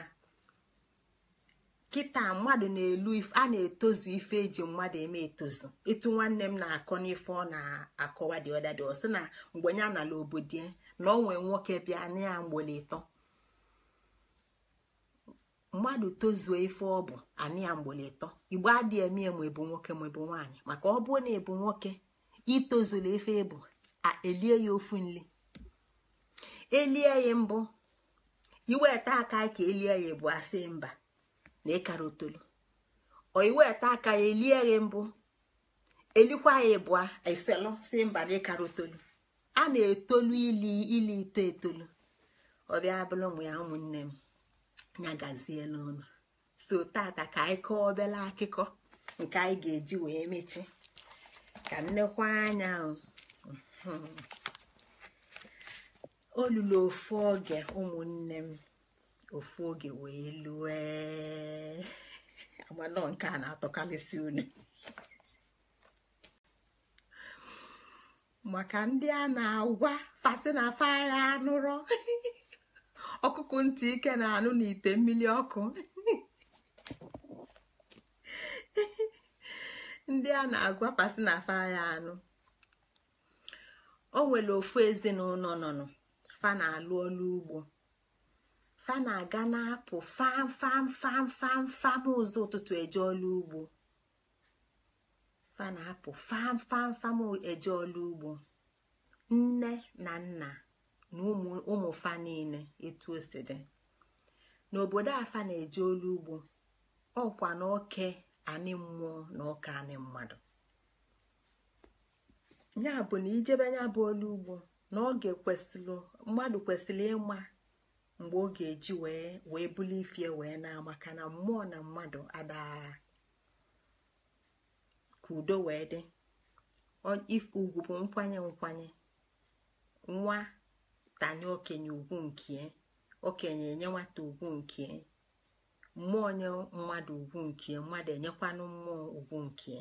kịta mmadụ na-elu a na-etozu ife eji mmadụ eme etozu ịtụ nwanne m na-akọ n'ife ọ na-akọwa dị ọdadị ọsị na mgbe ya nala obodo ya na ọ nwee nwoke bịa na ya mgbele ịtọ mmadụ tozuo ife ọ bụ anị ya mgbele ịtọ igbo adịghị eme ya ma ebu nwoke ma nwaanyị maka ọ bụrụ na ebu nwoke itozula ife ebu elie ya ofu nli elie ya mbụ iweta aka ka elie ya bụ asị mba na ịkara otolu ọ aka ya elie mbụ elikwa ya ịbụa iselụ si mba na ịkara otolu a na-etolu ili ili ito etolu ọ bịa ụmụ ya ụmụnne m nya gazie n'ọnụ so tata ka anyị kọọ obele akụkọ nke anyị ga-eji wee mechi ka nnekwa anya um, hmm. olulu ofu oge ụmụnne m ofu oge wee lue agbanọ nke a na-atọkalịsị unu maka ndị a na-agwa fasị na fa ya anụrọ ọkụkụ ntị ike na-anụ n'ite mmiri ọkụ ndị a na-agwa fasị na fa ya anụ o nwere ofu ezinụlọ nọnụ fa na-alụ ọlụ ugbo fa na-aga na-apụ fam fam fam ụzọ ụtụtụ eje ọlụ ugbo fa na-apụ eje ọlụ ugbo nne na nna na ụmụ fa niile etu o dị n'obodo afa na-eje olu ugbo ọkwa na oke anị mmụọ na ọka anị mmadụ ya bụ na ijebe ya bụ olu ugbo na oge kwesịrị mmadụ kwesịrị ịma mgbe ọ ga-eji wee wee buli ifie wee na maka na mmụọ na mmadụ adaara ka udo wee dị ugwu bụ nkwanye nkwanye nwa tanye okenye ugwu nke okenye enye nwata ugwu nke mmụọ nye mmadụ ugwu nke mmadụ enyekwanụ mmụọ ugwu nke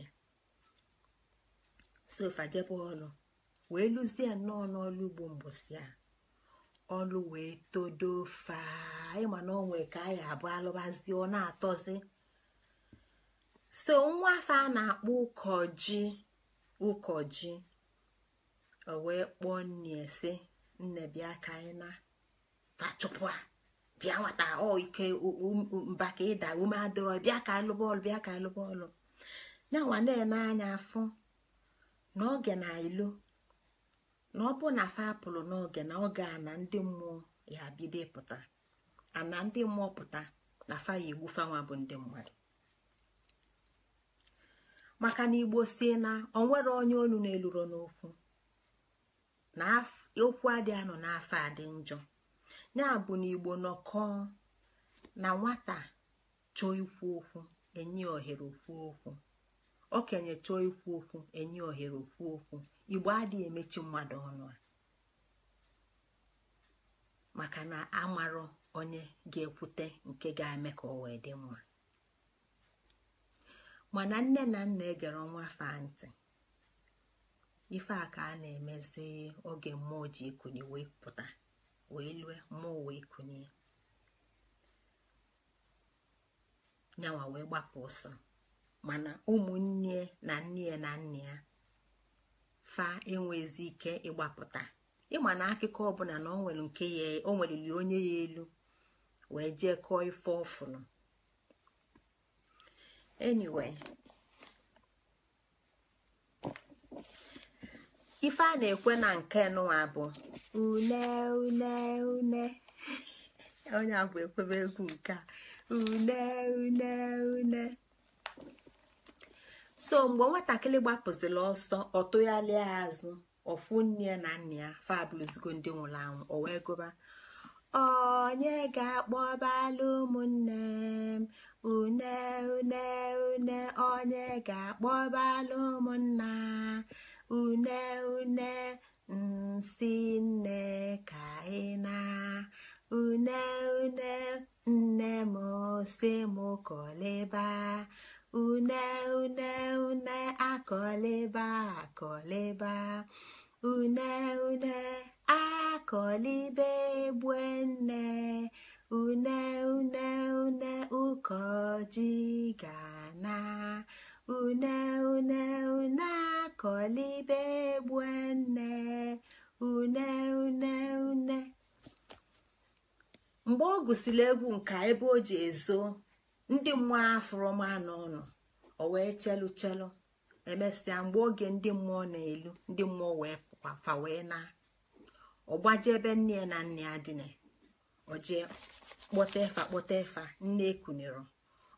so jebe ọlụ wee lụzie nnọọ n'ọlụ ugbo mbọsị a ọlụ wee todo faịma na onwe ka anyị abụ alụbazi ọ na-atọzi so nwa afọ a na-akpọ ụkọji ụkọji o wee kpọọ nne si nne bịa ka anyị na fachụpụ a bịa nwata ọ ike mba ka ịda ume adịrọ bịa ka anyị bịa ka anyị lụba ya nwa na-ene anya afụ na oge na ilu na ọ bụ na fa apụlụ n'oge na oge a na ndị mmụọ ya bido pụta ana ndị mmụọ pụta na fa ya igbu fanwa bụ ndị mmadụ maka na igbo sie na onwere onye onu na-eluro n'okwu na okwu adị anọ n'afọ adị njọ ya bụ na igbo nọkọọ na nwata chọọ ikwu okwu enye ohere okwu okwu okenye chọọ ikwu okwu enye ohere okwu okwu igbo adịghị emechi mmadụ ọnụ a maka na mara onye ga-ekwute nke ga-eme ka ọ wee dị mma mana nne na nna egere nwa fa ntị ife a ka a na-emezi oge mmụọ ji ikunye wee pụta wee lue mmụọ wee kunye nyawa wee gbapụ ọsọ mana ụmụnne na nne ya na nna ya fa enwezi ike ịgbapụta ịma na akụkọ ọbụla na onwere nke ya o onye ya elu wee jee kọọ ife ọfụrụ anyway ife a na-ekwe na nke nụwa bụ une une une onye abụ ekwebe egwu nke a une une une so mgbe nwatakịrị gbapụzila ọsọ ọ tụgharịa azụ ọfụ nne ya na nna ya fabụlụzigo ndị nwụrụ anwụ o wee gụba onye ga-akpọbalụ ụmụnne m une une une onye ga-akpọbalụ ụmụnna une une nsi nne ka ị na une une nne m si m kọlịba une une une akọliba akọliba une une akọlibe gbue nne une une une ụkọji gana une une une akọlibe gbue nne une une une mgbe ọ gụsịrị egwu nka ebe o ji ezo ndị mmụọ afụrụma na ọnụ o wee chelu chelu emesịa mgbe oge ndị mmụọ na-elu ndị mmụọ wee fa wee na ọgbaje ebe nne na nne ya dịna oje kpọta efa kpọta efa nne ekunere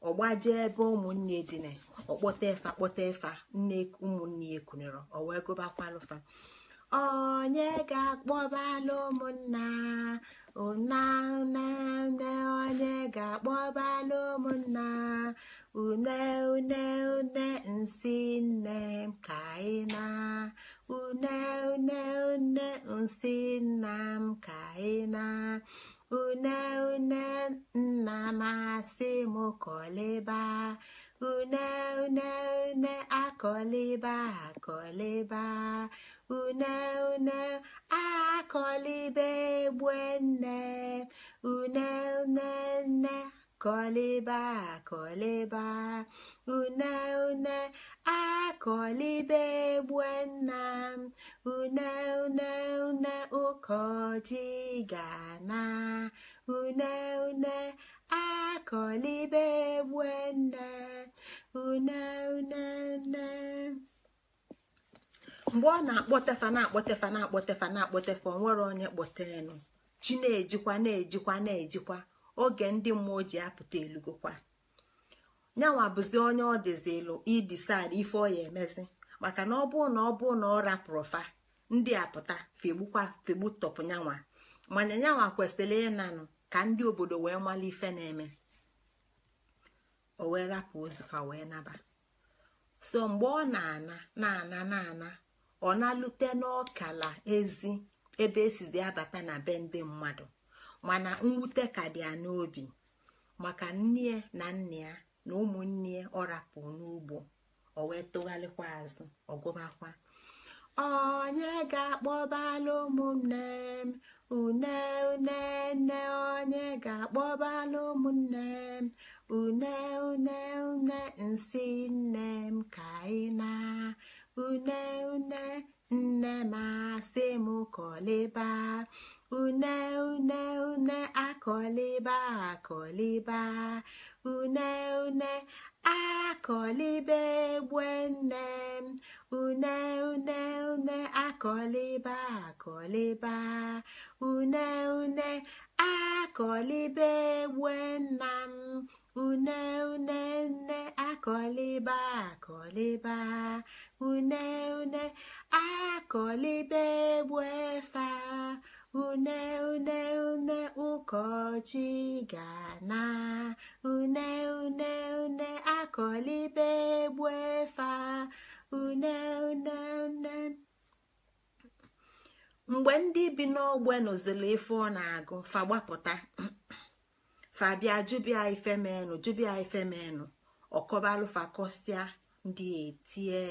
ọgbaje ebe ụmụnne dịna ọkpọta efa kpọta efa nne ụmụnne ya ekunere o wee gụbakwalụfa onye ga-akpọbalụ ụmụnna unaune une onye ga akpọba ụmụnna une une une nsị nne m ka ị na une une une nsị nna m ka ị na une une nna m asị m kọlịba une une une akọliba akọliba une une akọlibe egbe nne une une nne kọliba akọliba une une akọlibe egbe nna m une une une ụkọji ga une une akọlibe egbe nne une une nne mgbe ọ na-akpọtefa na-akpọtefa na-akpọtefa na-akpọtefa onwere onye kpọtenu chi na-ejikwa na-ejikwa na-ejikwa oge ndị mmụọ ji apụta elugokwa nyanwa bụzi onye ọ dịzilu idisad ife ọ ya emezi maka na ọ bụrụ na ọ bụrụ na ọ rapụrụ fa ndị apụta fegbukwa fegbu tọpụ nyanwa mana nyanwa kwesịrị ịnanụ ka ndị obodo wee mala ife na-eme o wee rapụ ozufa wee naba so mgbe ọ na-ana na-ana na-ana ọ na-alute n'ọkala ezi ebe esizi abata na be ndị mmadụ mana mwute ka dị ya n'obi maka nne na nna ya na ụmụnne ya ọ rapụ n'ugbo o wee tụgharịkwa azụ ọgụmakwa onye ga-akpọbala ụmụnne m une une nne onye ga-akpọbala ụmụnne m une une une nsị nne m ka anyị na une une nne masị m kọlịba une une une akọlịba akọlịba une une akọlịba egbe nne une une une akọlịba akọlịba une une akọlịba egbe nna m une une nne akọlịba akọlịba une une akọlibe egbu efe une une une ụkọchi ga-ana une une une akọlibe egbu efe une une une mgbe ndị bi n'ogbe nụziri ife ọ na-agụ fa gbapụta fabia jubia ifemenu jubia ifemenu ọkọbalụfa kọsịa ndị etie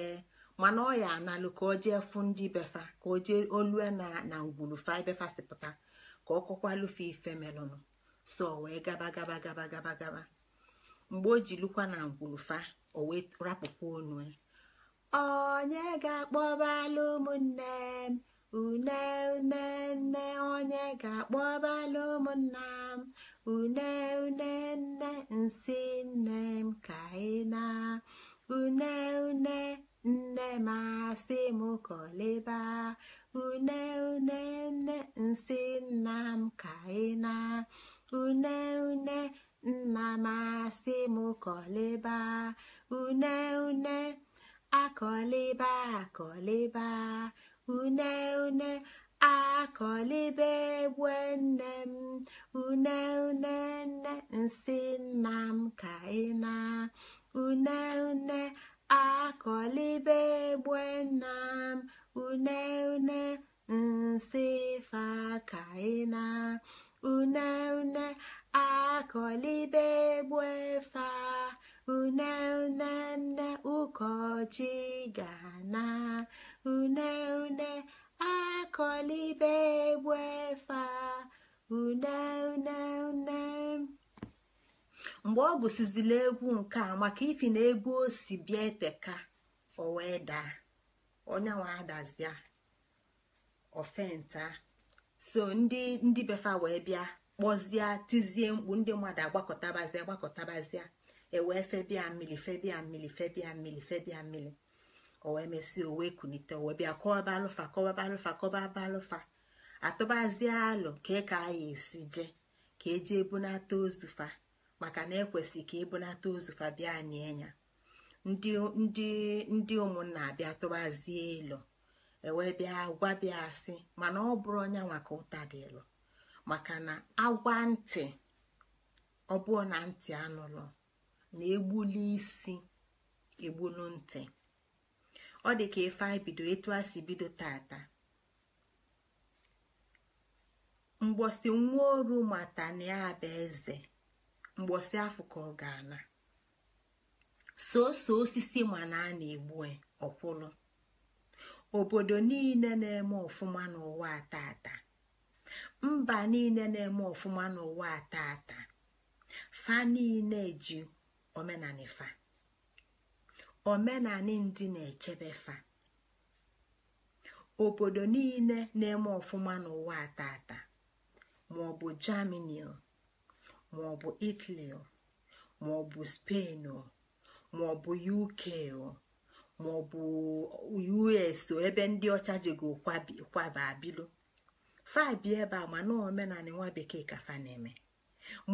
mana ọ ya analụ ka o jee fụ ndị befa ka o olue na na ngwulufa ibefa pụta ka ọ kọkwalụfe ife melụnụ so wee gaba gaba gaba gaba gaba mgbe o ji lukwa na ngwulufa o wee rapụkwa onu e. onye ga-akpọbalụ ụmụnne m une une nne onye ga-akpọbalụ ụmụnna m une une nne nsị nne m ka ị na une une nne masị m kọlịba une une nne nsị nna m ka ị na une une nna m asị m kọlịba une une akọlịba akọlịba une une akọlibe egwe nne m une une nne nsị nna m ka ị na une une akọlibe egbe m une une nsị fakaina une une akọlibe egbe fa une une nne ụkọchi gana une une akọlibe egbe fa une une une mgbe ọ gụsizila egwu nke a maka ifi na ebe o si bịa eteka o wee daa onyenwe adazia ofenta so ndị ndị befa wee bịa kpọzie tizie mkpu ndị mmadụ agbakọtabazia agbakọtabazia ewee febia mmiri febia mmiri febia mmiri febia mmiri o wee mesie o wee kunite o bịa kọba alụfa kọba alụfa kọba alụfa atụbazie alụ ka e ka anyị esi je ka eji ebunata ozu fa maka na ekwesị ka ịbụnata ozu fabia nie ndị ụmụnna abịa tụbazie ịlụ ewee bịa asị mana ọ bụrụ onye nwaka ụta dị ịlụ maka na agwa ntị ọ bụọ na ntị anụrụ na egbuli isi egbulu ntị ọ dị ka ife anyị bido etu a si bido tata mgbọsi nwa oru mata ya eze mgbọsị afọ ka ọ ga-ana soso osisi mana a na-egbu e, ọkwụlụ obodo niile na-eme ọfụma n'ụwa atata mba niile na-eme ọfụma n'ụwa atata fa niile ji omenani fa omenani ndị na-echebe fa obodo niile na-eme ọfụma n'ụwa atata maọbụ jamini maọbụ itali maọbụ spenụ maọbụ uk maọbụ us ebe ndị ọcha ga kwaba abilu fabi ebe a mana omenala nwa bekee ka fa na-eme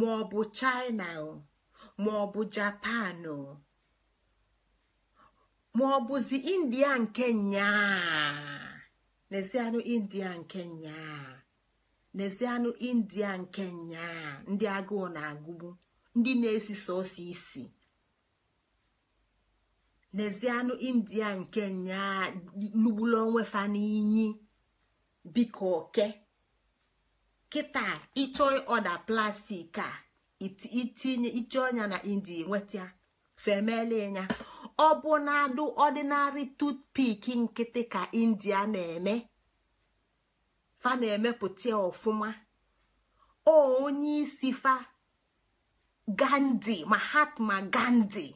maọbụ china maọbụ japan maọbụzi india nke nyaa n'ezianụ india nke nyaa nezianụ india nke nyaa ndị agụụ na-agụgbu ndị na-esi sọsọ isi nezianụ india nke nyaa lugbulu onwe fa biko oke kịta ịchọ ọda plastik a itinye ịchọ ọnya na india nweta femele ya ọ bụ na adụ ọdịnarị tutpik nkịtị ka india na-eme fa na-emepụta ọfụma o onye isi fa mahatma gandhi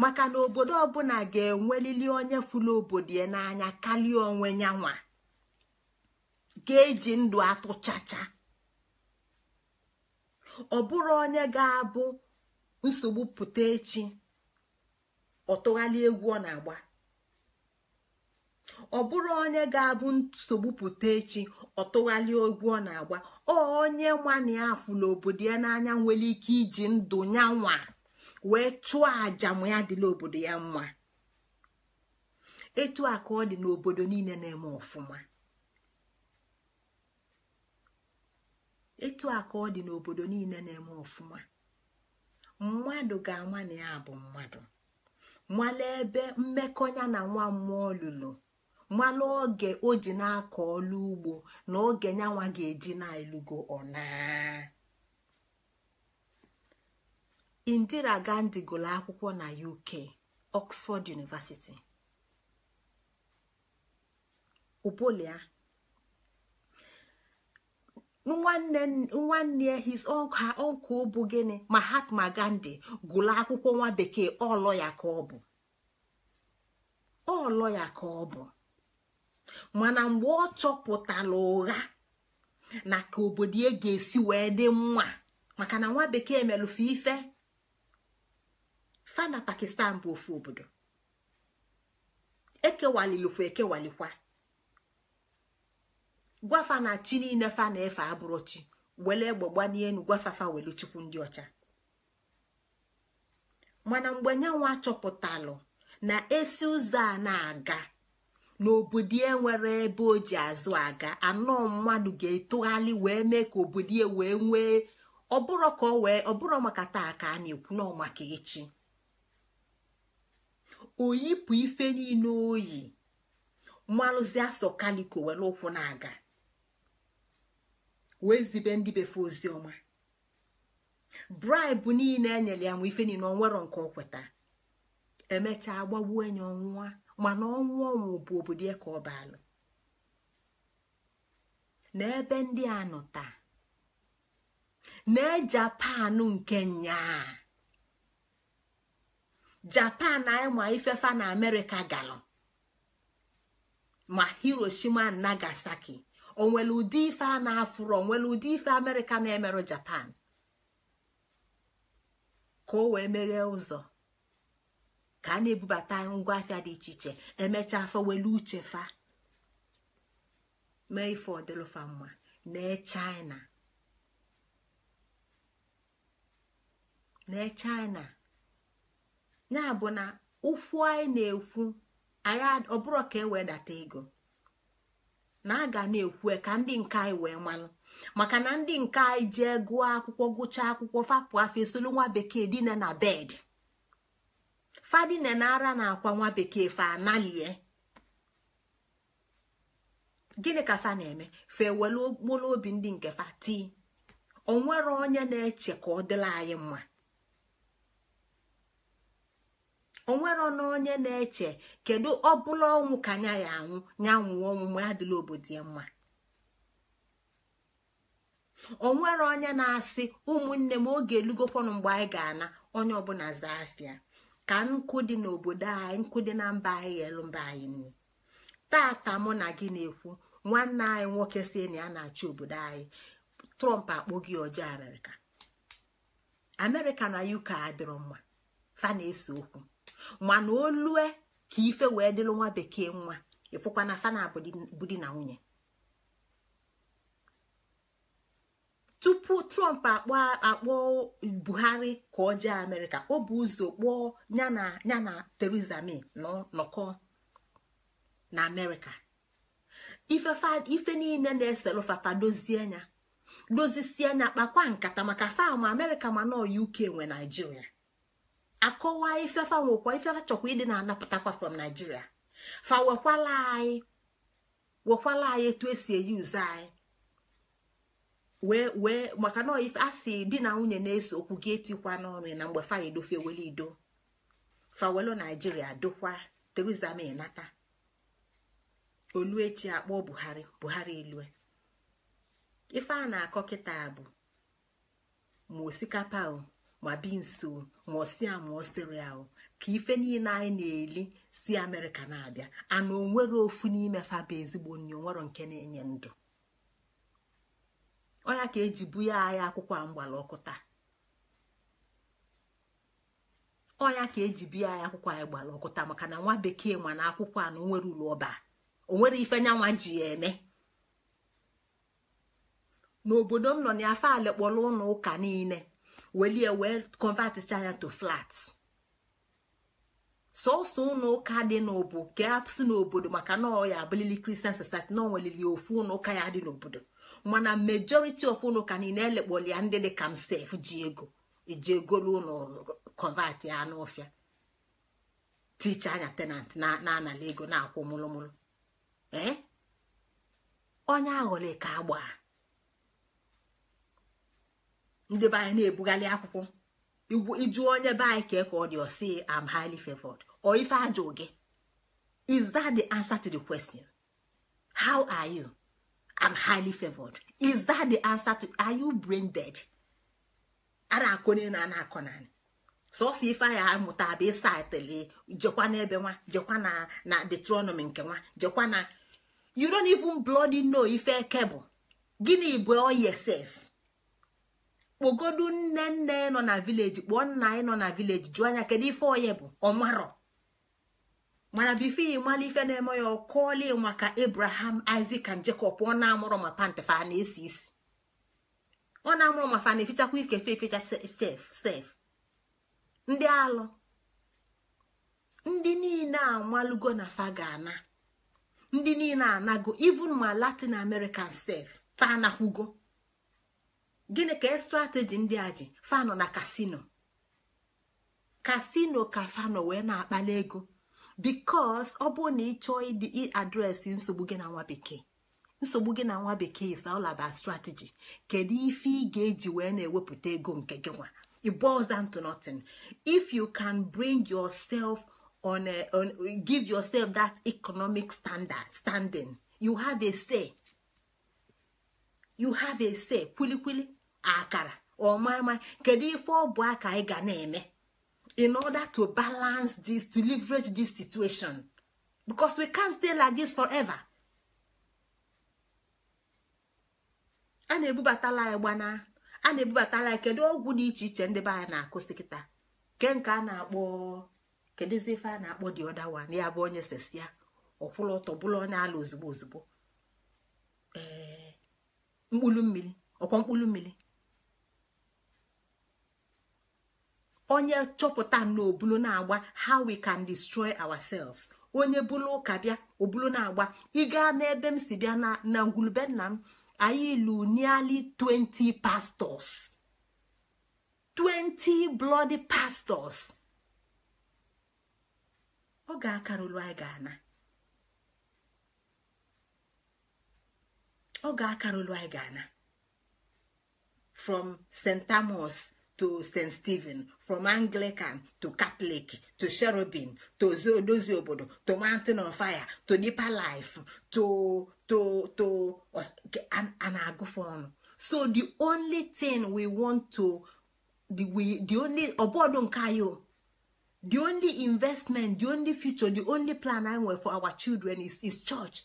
maka na obodo ọbụla ga-enwelili onye fụlụ obodo ya n'anya karịa onwe ya nwa ga-eji ndụ atụchacha ọ bụrụ onye ga-abụ nsogbu pụta echi ọtụghalị egwu ọ na-agba ọ bụrụ onye ga-abụ nsogbu pụta echi ọ tụgharịa ọ na-agba ọ onye nwana ya afụ n'obodo ya n'anya nwere ike iji ndụ ya nwa wee chụọ àjà ya obodo ya mma etu a ọ dị n'obodo niile na-eme ọfụma mmadụ ga-ama na ya bụ mmadụ Nwalee ebe mmekọ na nwa mmụọ lụrụ mmanụ oge o ji na-akọ ọlụ ugbo na oge nyanwa ga-eji na-elugo ọna Indira Gandhi gụrụ akwụkwọ na UK Oxford University upolia nwanne his her bụ gịnị Mahatma Gandhi gụrụ akwụkwọ nwa bekee ọlọ ya ka ọ bụ ya ka ọ bụ mana mgbe ọ chọpụtara ụgha na ka obodo ya ga-esi wee dị mma maka na nwa bekee melụfe ife fa na pakistan bụ ofu obodo ekewalilukwa ekewalikwa gwafa na chi niile fa na-efe abụrụ chi were egbe gbanie enu gwafafa welu chukwu ndị ọcha mana mgbe nyanwa chọpụtalụ na esi ụzọ a na-aga n'obodo e nwere ebe o ji azụ aga anọ mmadụ ga-etogharị wee mee ka obodo ya e wee nwee ọbụrụ ka wee ọbụrụ maka taa ka a na-ekwu na echi oyipụ ife niile oyi mmalụzi asọ kaliko were ụkwụ na-aga wee zibe ndị befe ozi ọma bribe niile enyere ya nwe ife niile onwero nke ọ kweta emechaa gbagbuo enyi ọnwụwa mana ọnwụ ọnwụ bụ obodo ya e ka ọ balụ n'ebe ndị a nọ taa na japan nke nyaa japan ịma ifefa na amerịka galụ ma hiroshima nagasaki onwere ụdị ife a na-afụrụ onwere ụdị ife amerịka na-emerụ japan ka o wee meghee ụzọ ka a na-ebubata ngwa afịa dị iche iche emechaa afọ welu uche fa mee ife ọdịlụfa mma nee china nee china ya bụ na ụfụ anyị na-ekwu anyị ọbụrụ ka e wee data ego na a ga na-ekwu e ka ndị nke anyị wee malụ maka na ndị nke anyị jee gụọ akwụkwọ gụchaa akwụkwọ fapụ afọ esolu nwa bekee dina na bed fadine na ara na akwa nwa bekee fa analie gịnị ka fa na-eme fa ewelu mkpụrụ obi ndị nke fa tii onwere onye na-eche ka ọ dịla anyị mma onwere na onye na-eche kedu ọbụla ọnwụ ka anya ya anwụ nya nwụọ ọnwụ adịla obodo ya mma onwere onye na-asị ụmụnne m oge elugokwanụ mgbe anyị ga-ana onye ọbụla zaa afịa ka nkụ dị n'obodo anyị nkụ dị na mba anyị elu mba anyị nne tata mụ na gị na-ekwu nwanne anyị nwoke si na ya na-achị obodo anyị trump akpọghị gị ọjọọ amerịka amerịka na uk adịrọ mma fa na-ese okwu mana olue ka ife wee dịrị nwa bekee nwa ịfụkwana na fa na na nwunye tupu trump akpọ buhari ka ọ jee amerịka o bụ ụzọ kpọọ ya na theresa may nọkọ na amerịka ife niile na-eselụfata dozie ya dozisie anya kpakwa nkata maka fam amerịka ma nọ uk nwe naijiria akọwa ifefa nwekwa ifefa chọkwa ịdị na-anapụtakwa from naijiria fa wekwala anyị wekwala anyị etu esi eyuzu anyị wee wee maka na ife a si di na nwunye na-eso okwu gị etikwa n'ọnụ na mgbe fa edofe ido fawelu naijiria dokwa Theresa May nata oluechi akpọ Buhari Buhari elue ife a na-akọ kịta bụ ma osikapa ma binso ma osia ma osiria ka ife niile anyị na-eli si Amerịka na-abịa ana onwere ofu n'ime bụ ezigbo nri onwero nke na-enye ndụ onya ka eji buye agha akwụkwọ a mgbala ọkụ taa ọya ka eji akwụkwọ anyị ọkụ taa maka na nwa bekee ma na akwụkwọ a na onwere ụlọ ọba onwere ife nyanwa ji ya eme n'obodo m nọ na afa alekpọrọ ụlọ ụka niile welie wee kọnvaticha ya to flat sọsọ ụlọ ụka dị n'obu ka a n'obodo maka na ọ ya abụlili kristian society na ofu ụlọ ụka ya dị n'obodo mana majority of unu ka niile elekpolia ndị dị ka m sef ji ego eji egolu ụlọ kọvatị anụ ticha anya tenant na-anala ego na-akwụ mụlụmụlụ ee eh? onye aghọle ka agba ndị be anyị na-ebugharị akwụkwọ ịjụ onye be anyị ka e ka ọ dị am highly favored ọ ife ajụ gị is that the answer to the question how are you? am highly favored is that the answer to are you brain dead a na-akọnye na a na-akọnanị sọsọ ife ya amụta bụ ịsaịtịlị jekwa n'ebe nwa jekwa na na detronomi nke nwa jekwa na you don't even bloody know ife eke bụ gịnị bụ oyesef kpogodu nne nne nọ na vileji kpọọ nna anyị nọ na vileji jụọ anya kedu ife onye bụ ọmarọ mana bifeyi ịmala ife na-eme ya ịnwa maka abraham isaac and jacob ọ na-amụrụ ma pantefa na-esi isi ọ na-amụrụ ma fa na-efichakwa ike fe chef sef ndị alụ ndị niile amalugo na fa ga-ana ndị niile anago even ma latin american sef fa anakwugo gịnị ka strateji ndị a ji nọ na kasino kasino ka nọ wee na-akpali ego bikos ọ bụrụ na ị chọọ ịdị adresị nsogbu gị na nwa bekee nsogbu gị na nwa bekee is all about strategy kedu ife ị ga-eji wee na-ewepụta ego nke gị nwa it boils down to nothing if you can bring yourself on, a, on give yourself that economic standard standing you have a say you have a say kwilikwili akara ọmama kedu ife ọ bụ aka ị ga na-eme in order to balance this to leverage this situation because we can't stay like this forever. a na-ebubatala gbana, a na-ebubatala ya kedu ọgwụ dị iche iche ndị be anyị na-akụsị kịta ke nke a na-akpọ kedụzi ife a na-akpọ dị ọdawa na ya bụ onye sesia ọkwụrụ ọtọ bụrụ ala ozugbo ozugbo ee mmiri mmiri onye chọpụta na obulu na-agba how we can destroy ourselves onye bụlụ ụka bịa obulu na-agba ị gaa n'ebe m si bịa na ngwulube nna m anyị ilu nearly 20 pastors 20 bloody pastors ọ ga-akarụlụ anyị ga-ana ọ ga-akarụlụ anyị ga-ana from St. Amos. to st stephen from anglican to catholic to cherubim to odozi obodo to mountain of fire to deeper life to to to a agufon so the only thing we want to the, we, the only ọbọdụ nke anyị the only investment the only future the only plan I nwere for our children is, is church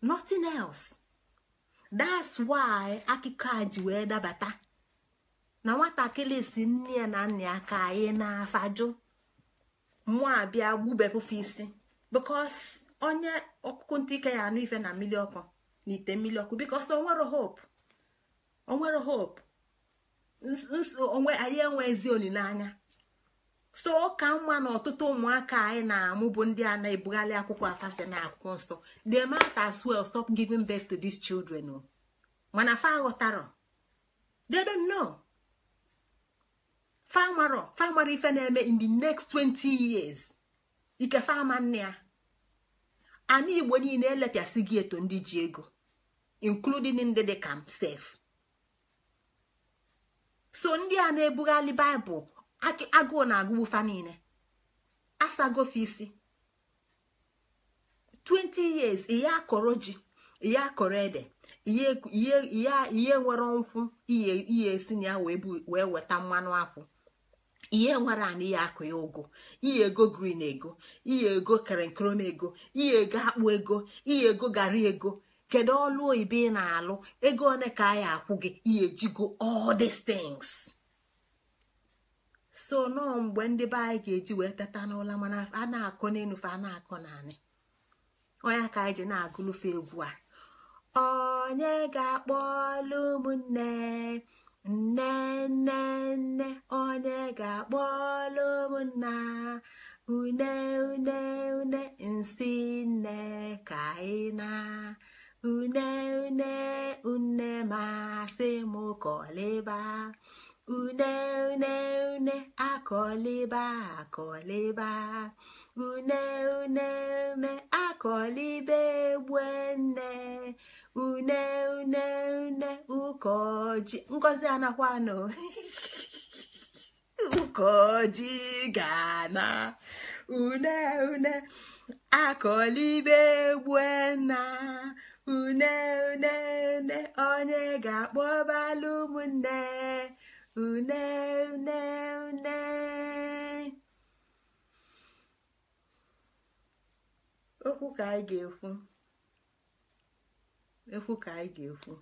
nothing else. that's why akụkọ a ji wee dabata na nwatakịrị si nne ya na nna ya ka anyị e na-afajụ mwa abịa gbubepụfe isi because onye ọkụkụ ntị ike ya anụ ife na mmiri ọkụ na ite mmiri ọkụ because onwere hope onwere hope onwe anyị enwe ezi olileanya so ka mma na ọtụtụ ụmụaka anyị na-amụ bụ ndị a na-ebugharị akwụkwọ afasị na akwụkwọ nsọ they matter as well stop giving birth to these children oh. mana fa ghọtara they don't know famaro ife na-eme in the next 20 years ike fama nne ya ana igbo niile elepịasị gị eto ndị ji ego including ndị dị ka m sef so ndị a na-ebugharị baịbụl agụụ na-agụgbufa agụ niile asagofe isi 20 years ihe akọrọ ji ihe akọrọ ede ihe nwere nkwụ ihe esi na ya wee weta mmanụ akwụ ihe nwere anị ya akụ ya ụgụ ihe ego green ego ihe ego kerenkrom ego ihe ego akpụ ego ihe ego gara ego kedu ọlụ oyibo ị na-alụ ego one ka a ya akwụ gị ihe ejigo all these things so nọọ mgbe ndị be anyị ga-eji wee teta n'ụla mana a na akụ n'enufe a na-akọ naanị onye ka anyị ji na-agụlụfe egwu a onye ga-akpọlụ ụmụnne nne nne nne onye ga-akpọlụ ụmụnna une une une nsi nne ka anyị na une une une m kọlịba une une une akọliba akọliba une une une akọliba egbe nne une une une ụkọji ngozi anakwanụ ụkọji ga na! une une akọliba egbe nna une une une onye ga ụmụ ụmụnne une une une okwu ka anyị ga-ekwu ekwu ka anyị ga-ekwu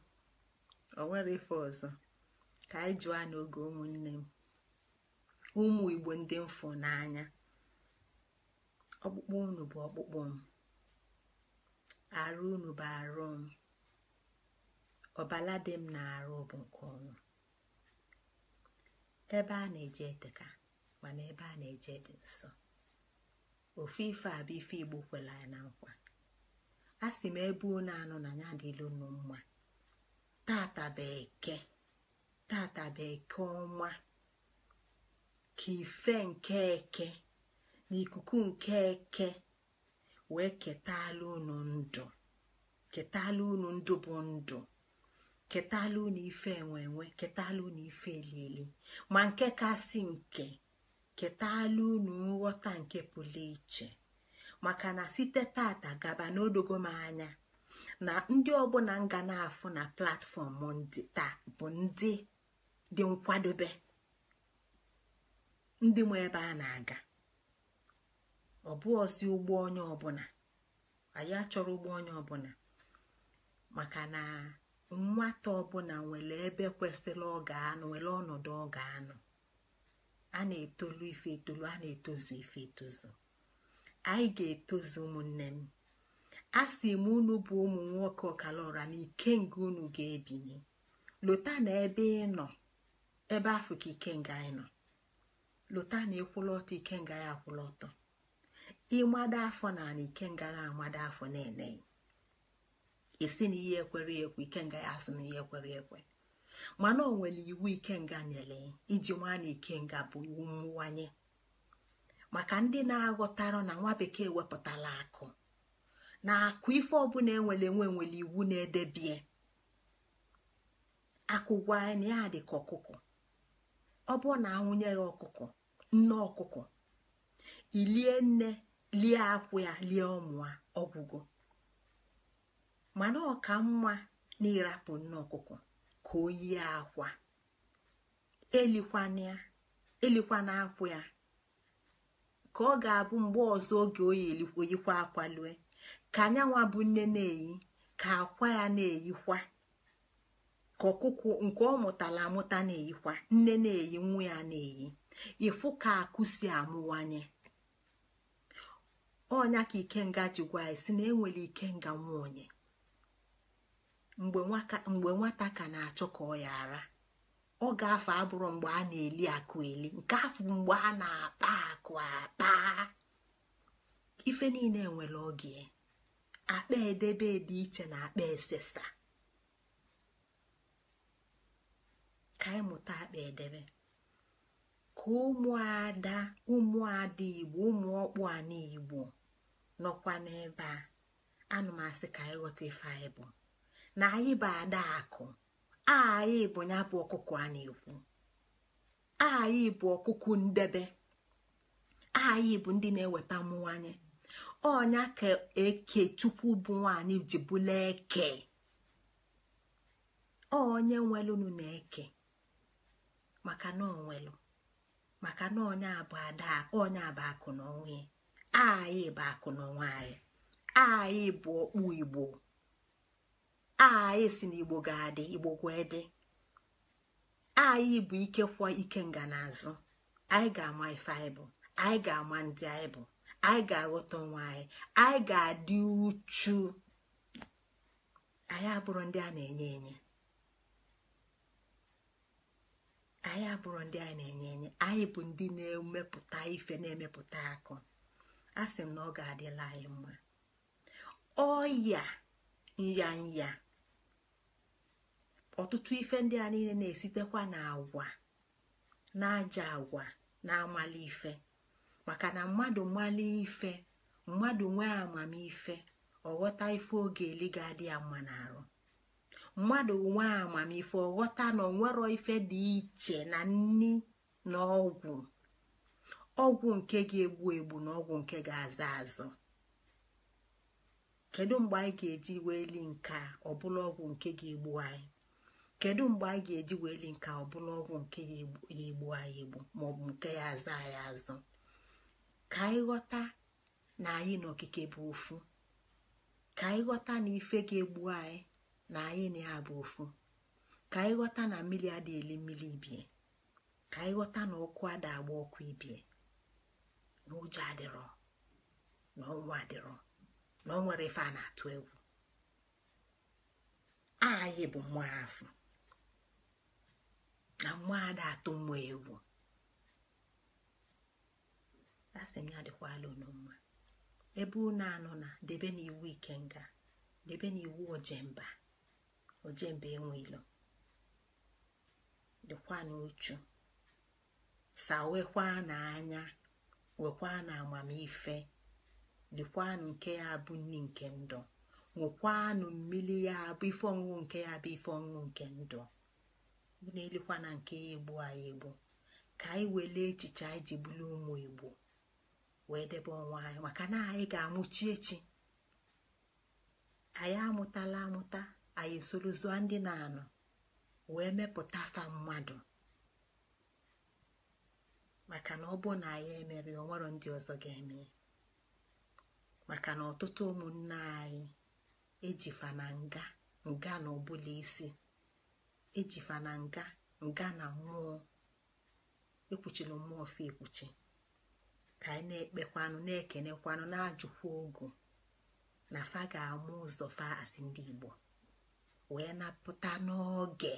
ọ nwere ife ọzọ ka anyị jụọ n'oge ụmụnne m ụmụ igbo ndị mfụ n'anya ọkpụkpụ unu bụ ọkpụkpụ m arụ unu bụ arụ m ọbala dị m na arụ bụ nke ọnwụ ebe a na-eje eteka mana ebe a na-eje dị nsọ ofu ife a bụ ife igbo kwela ya na nkwa a m ebe unu anọ na ya adịla unu mma tata bụ eke tata bụ eke ọnwa ka ife nke eke na ikuku nke eke wee ketala unu ndụ ketala unu ndụ bụ ndụ ketala unu ife enwe ketala unu ife elili ma nke kasị nke ketala unu nghọta nke pụrụ iche maka na site tata gaba n'odogo anya na ndị ọbụla nga na-afụ na platfọm ndị taa bụ ndị dị nkwadobe ndị nwe ebe a na-aga ọ bụ ọzi ụgbọ onye ọbụla anyị achọrọ ụgbọ onye ọbụla maka na. nwata ọbụla nwere ebe kwesịrị ọ ga nwere ọnọdụ ọ ga-anọ a na-etolu ife etolu a na-etozu ife etozu anyị ga-etozu ụmụnne m a sị m unu bụ ụmụ nwoke ọkala na ike nga unu ga-ebinye lota na ebe ị nọ ebe afọ ka ike nga anyị nọ lụta na ịkwụla ọtọ ike nga ya akwụla ọtọ ịmada afọ na na ike nga ya amada afọ na-eneghị esi na ihe ekwere ekwe ikenga ya asị na ihe ekwere ekwe mana o nwere iwu ikenga nyere iji nwa nwana ikenga bụ iwu mmụwanye maka ndị na-aghọtara na nwa bekee wepụtala akụ na akụ ife ọbụla enwere enwe nwere iwu na-edebie akụ gwa na ya dị ka ọkụkọ ọ bụrụ na ya ọkụkọ nne ọkụkọ ilie nne lie akwụ ya lie ụmụ ọgwụgwọ mana ọka mma na ịrapụ nne ọkụkọ ka o yie akwa elikwana akwụ ya ka ọ ga-abụ mgbe ọzọ oge oyikwa akwa lue ka anyanwa bụ nne na-eyi ka akwa ya na-eyikwa ka ọkụkụ nke ọ mụtara amụta na-eyikwa nne na-eyi nwa ya na-eyi ịfụ ka akụ si amụwanye ọnya ka ikenga ji gwa anyị si na enwere ikenga nwa onye mgbe nwata ka na-achọ ka ọ ya ara ọ ga-afọ abụrụ mgbe a na-eli akụ eli nke afọ mgbe a na-akpa akụ akpa ife niile nwere oge akpa edebe dị iche na akpa esesa ka anyị mụta akpa edebe ka ụmụada ụmụada igbo ụmụ ọkpụ na igbo nọkwa n'ebe a anụmasị ka anyị ghọta ife anyị bụ na anyị bụ adaakụ anyị bụ ya bụ ọkụkọ a na-ekwu anyị bụ ọkụkụ ndebe anyị bụ ndị na-eweta mmụọ anyị ọnya ka eke chukwu bụ nwanyị ji bụla eke onye nwelụnụ na eke maka na onwelụ maka na onye abụ ada onye abụ akụ na onwe anyị bụ akụ na onwe anyị anyị bụ ọkpụ igbo aha na igbo ga-adị igbo gwee dị anyị bụ ike kwọ ike nganazụ anyị ga-ama ife anyị bụ anyị ga-ama ndị anyị bụ anyị ga-aghọta onwe anyị anyị ga-adị uchu anyị abụrụ ndị a na-enye enye anyị abụrụ ndị a na-enye enye anyị bụ ndị na-emepụta ife na-emepụta akụ a sị m na ọ ga-adịla anyị mma ọya nyanya ọtụtụ ife ndị a niile na-esitekwa na agwa na aja agwa na amali ife maka na mmadụ mali ife mmadụ nwee amamife ọghọta ife oge eli ga-adị ya mma n'arụ mmadụ nwee amamife ọghọta na onwero ife dị iche na nni na ọgwụ ọgwụ nke ga-egbu egbu na ọgwụ nke ga-aza azụ kedu mgbe anyị ga-eji weli nke ọ bụla ọgwụ nke ga-egbu anyị kedu mgbe anyị ga-eji wee li nke ọ ọgwụ nke ya egbu anyị egbu maọbụ nke ya azụ anyị azụ ka anyị ghọta na anyị na okike bụ ofu ka anyị ghọta na ife ga-egbu anyị na anyị na ya bụ ofu ka anyị ghọta na mmiri ada eli mmiri ibie ka anyị ghọta na ọkụ ada agba ọkụ ibie na ụjọ adịrọ na ọnwa adịrọ na o nwere ife a na-atụ egwu anyị bụ mmụọ afọ na mmadụ atụ mma ewu asị m ya dịkwala unu ebe unu anọ na debe n'iwu ikenga debe n'iwu ojemba ojemba enwelo dịkwa n'uchu sawekwa n'anya wekwa na amamife dịkwanụ nke ya bụ nri nke ndụ ṅụkwanụ mmiri ya bụ ife ọṅụṅụ nke ya bụ ife ọṅụṅụ nke ndụ na-elikwa na nke ya egbu anyị egbu ka anyị welee echiche anyị ji bulu ụmụ igbo wee debe onwe anyị maka na anyị ga-amụchi echi anyị amụtala amụta anyị esorozụa ndị na-anọ wee mepụta afa mmadụ maka na ọ bụ na anyị emere onwero ndị ọzọ ga-eme maka na ọtụtụ ụmụnne anyị ejifa na nga nga na ọbụla isi ejifa na nga nga na mmụọ ekwuchila mmụọ fi ekwuchi ka anyị na-ekpekwanụ na-ekenekwanụ na-ajụkwa ogu na fa ga-amụ ụzọ fa asị ndị Igbo wee napụta n'oge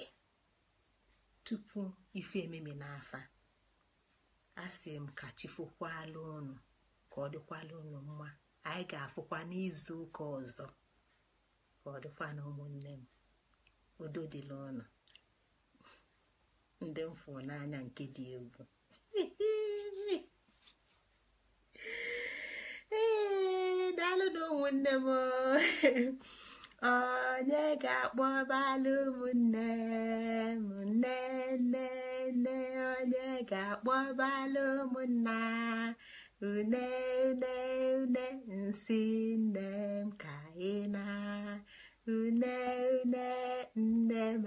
tupu ife ememe n'afa asị m ka chifokwala unu ka ọ dịkwala unu mma anyị ga-afụkwa n'izu ọzọ ka ọ dịkwa ụmụnne m udo dịla ndị mfụ n'anya nke dị egwu ee daalụ na ụmụnne m onye ga-akpọ balụ ụmụnne m nne nne nne onye ga-akpọ balụ ụmụnna une une une nsi nne m ka ị na une une nne m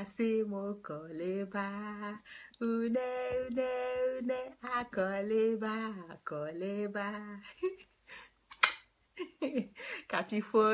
asị m kọlịba une une une akọlịba akọlịba kachifo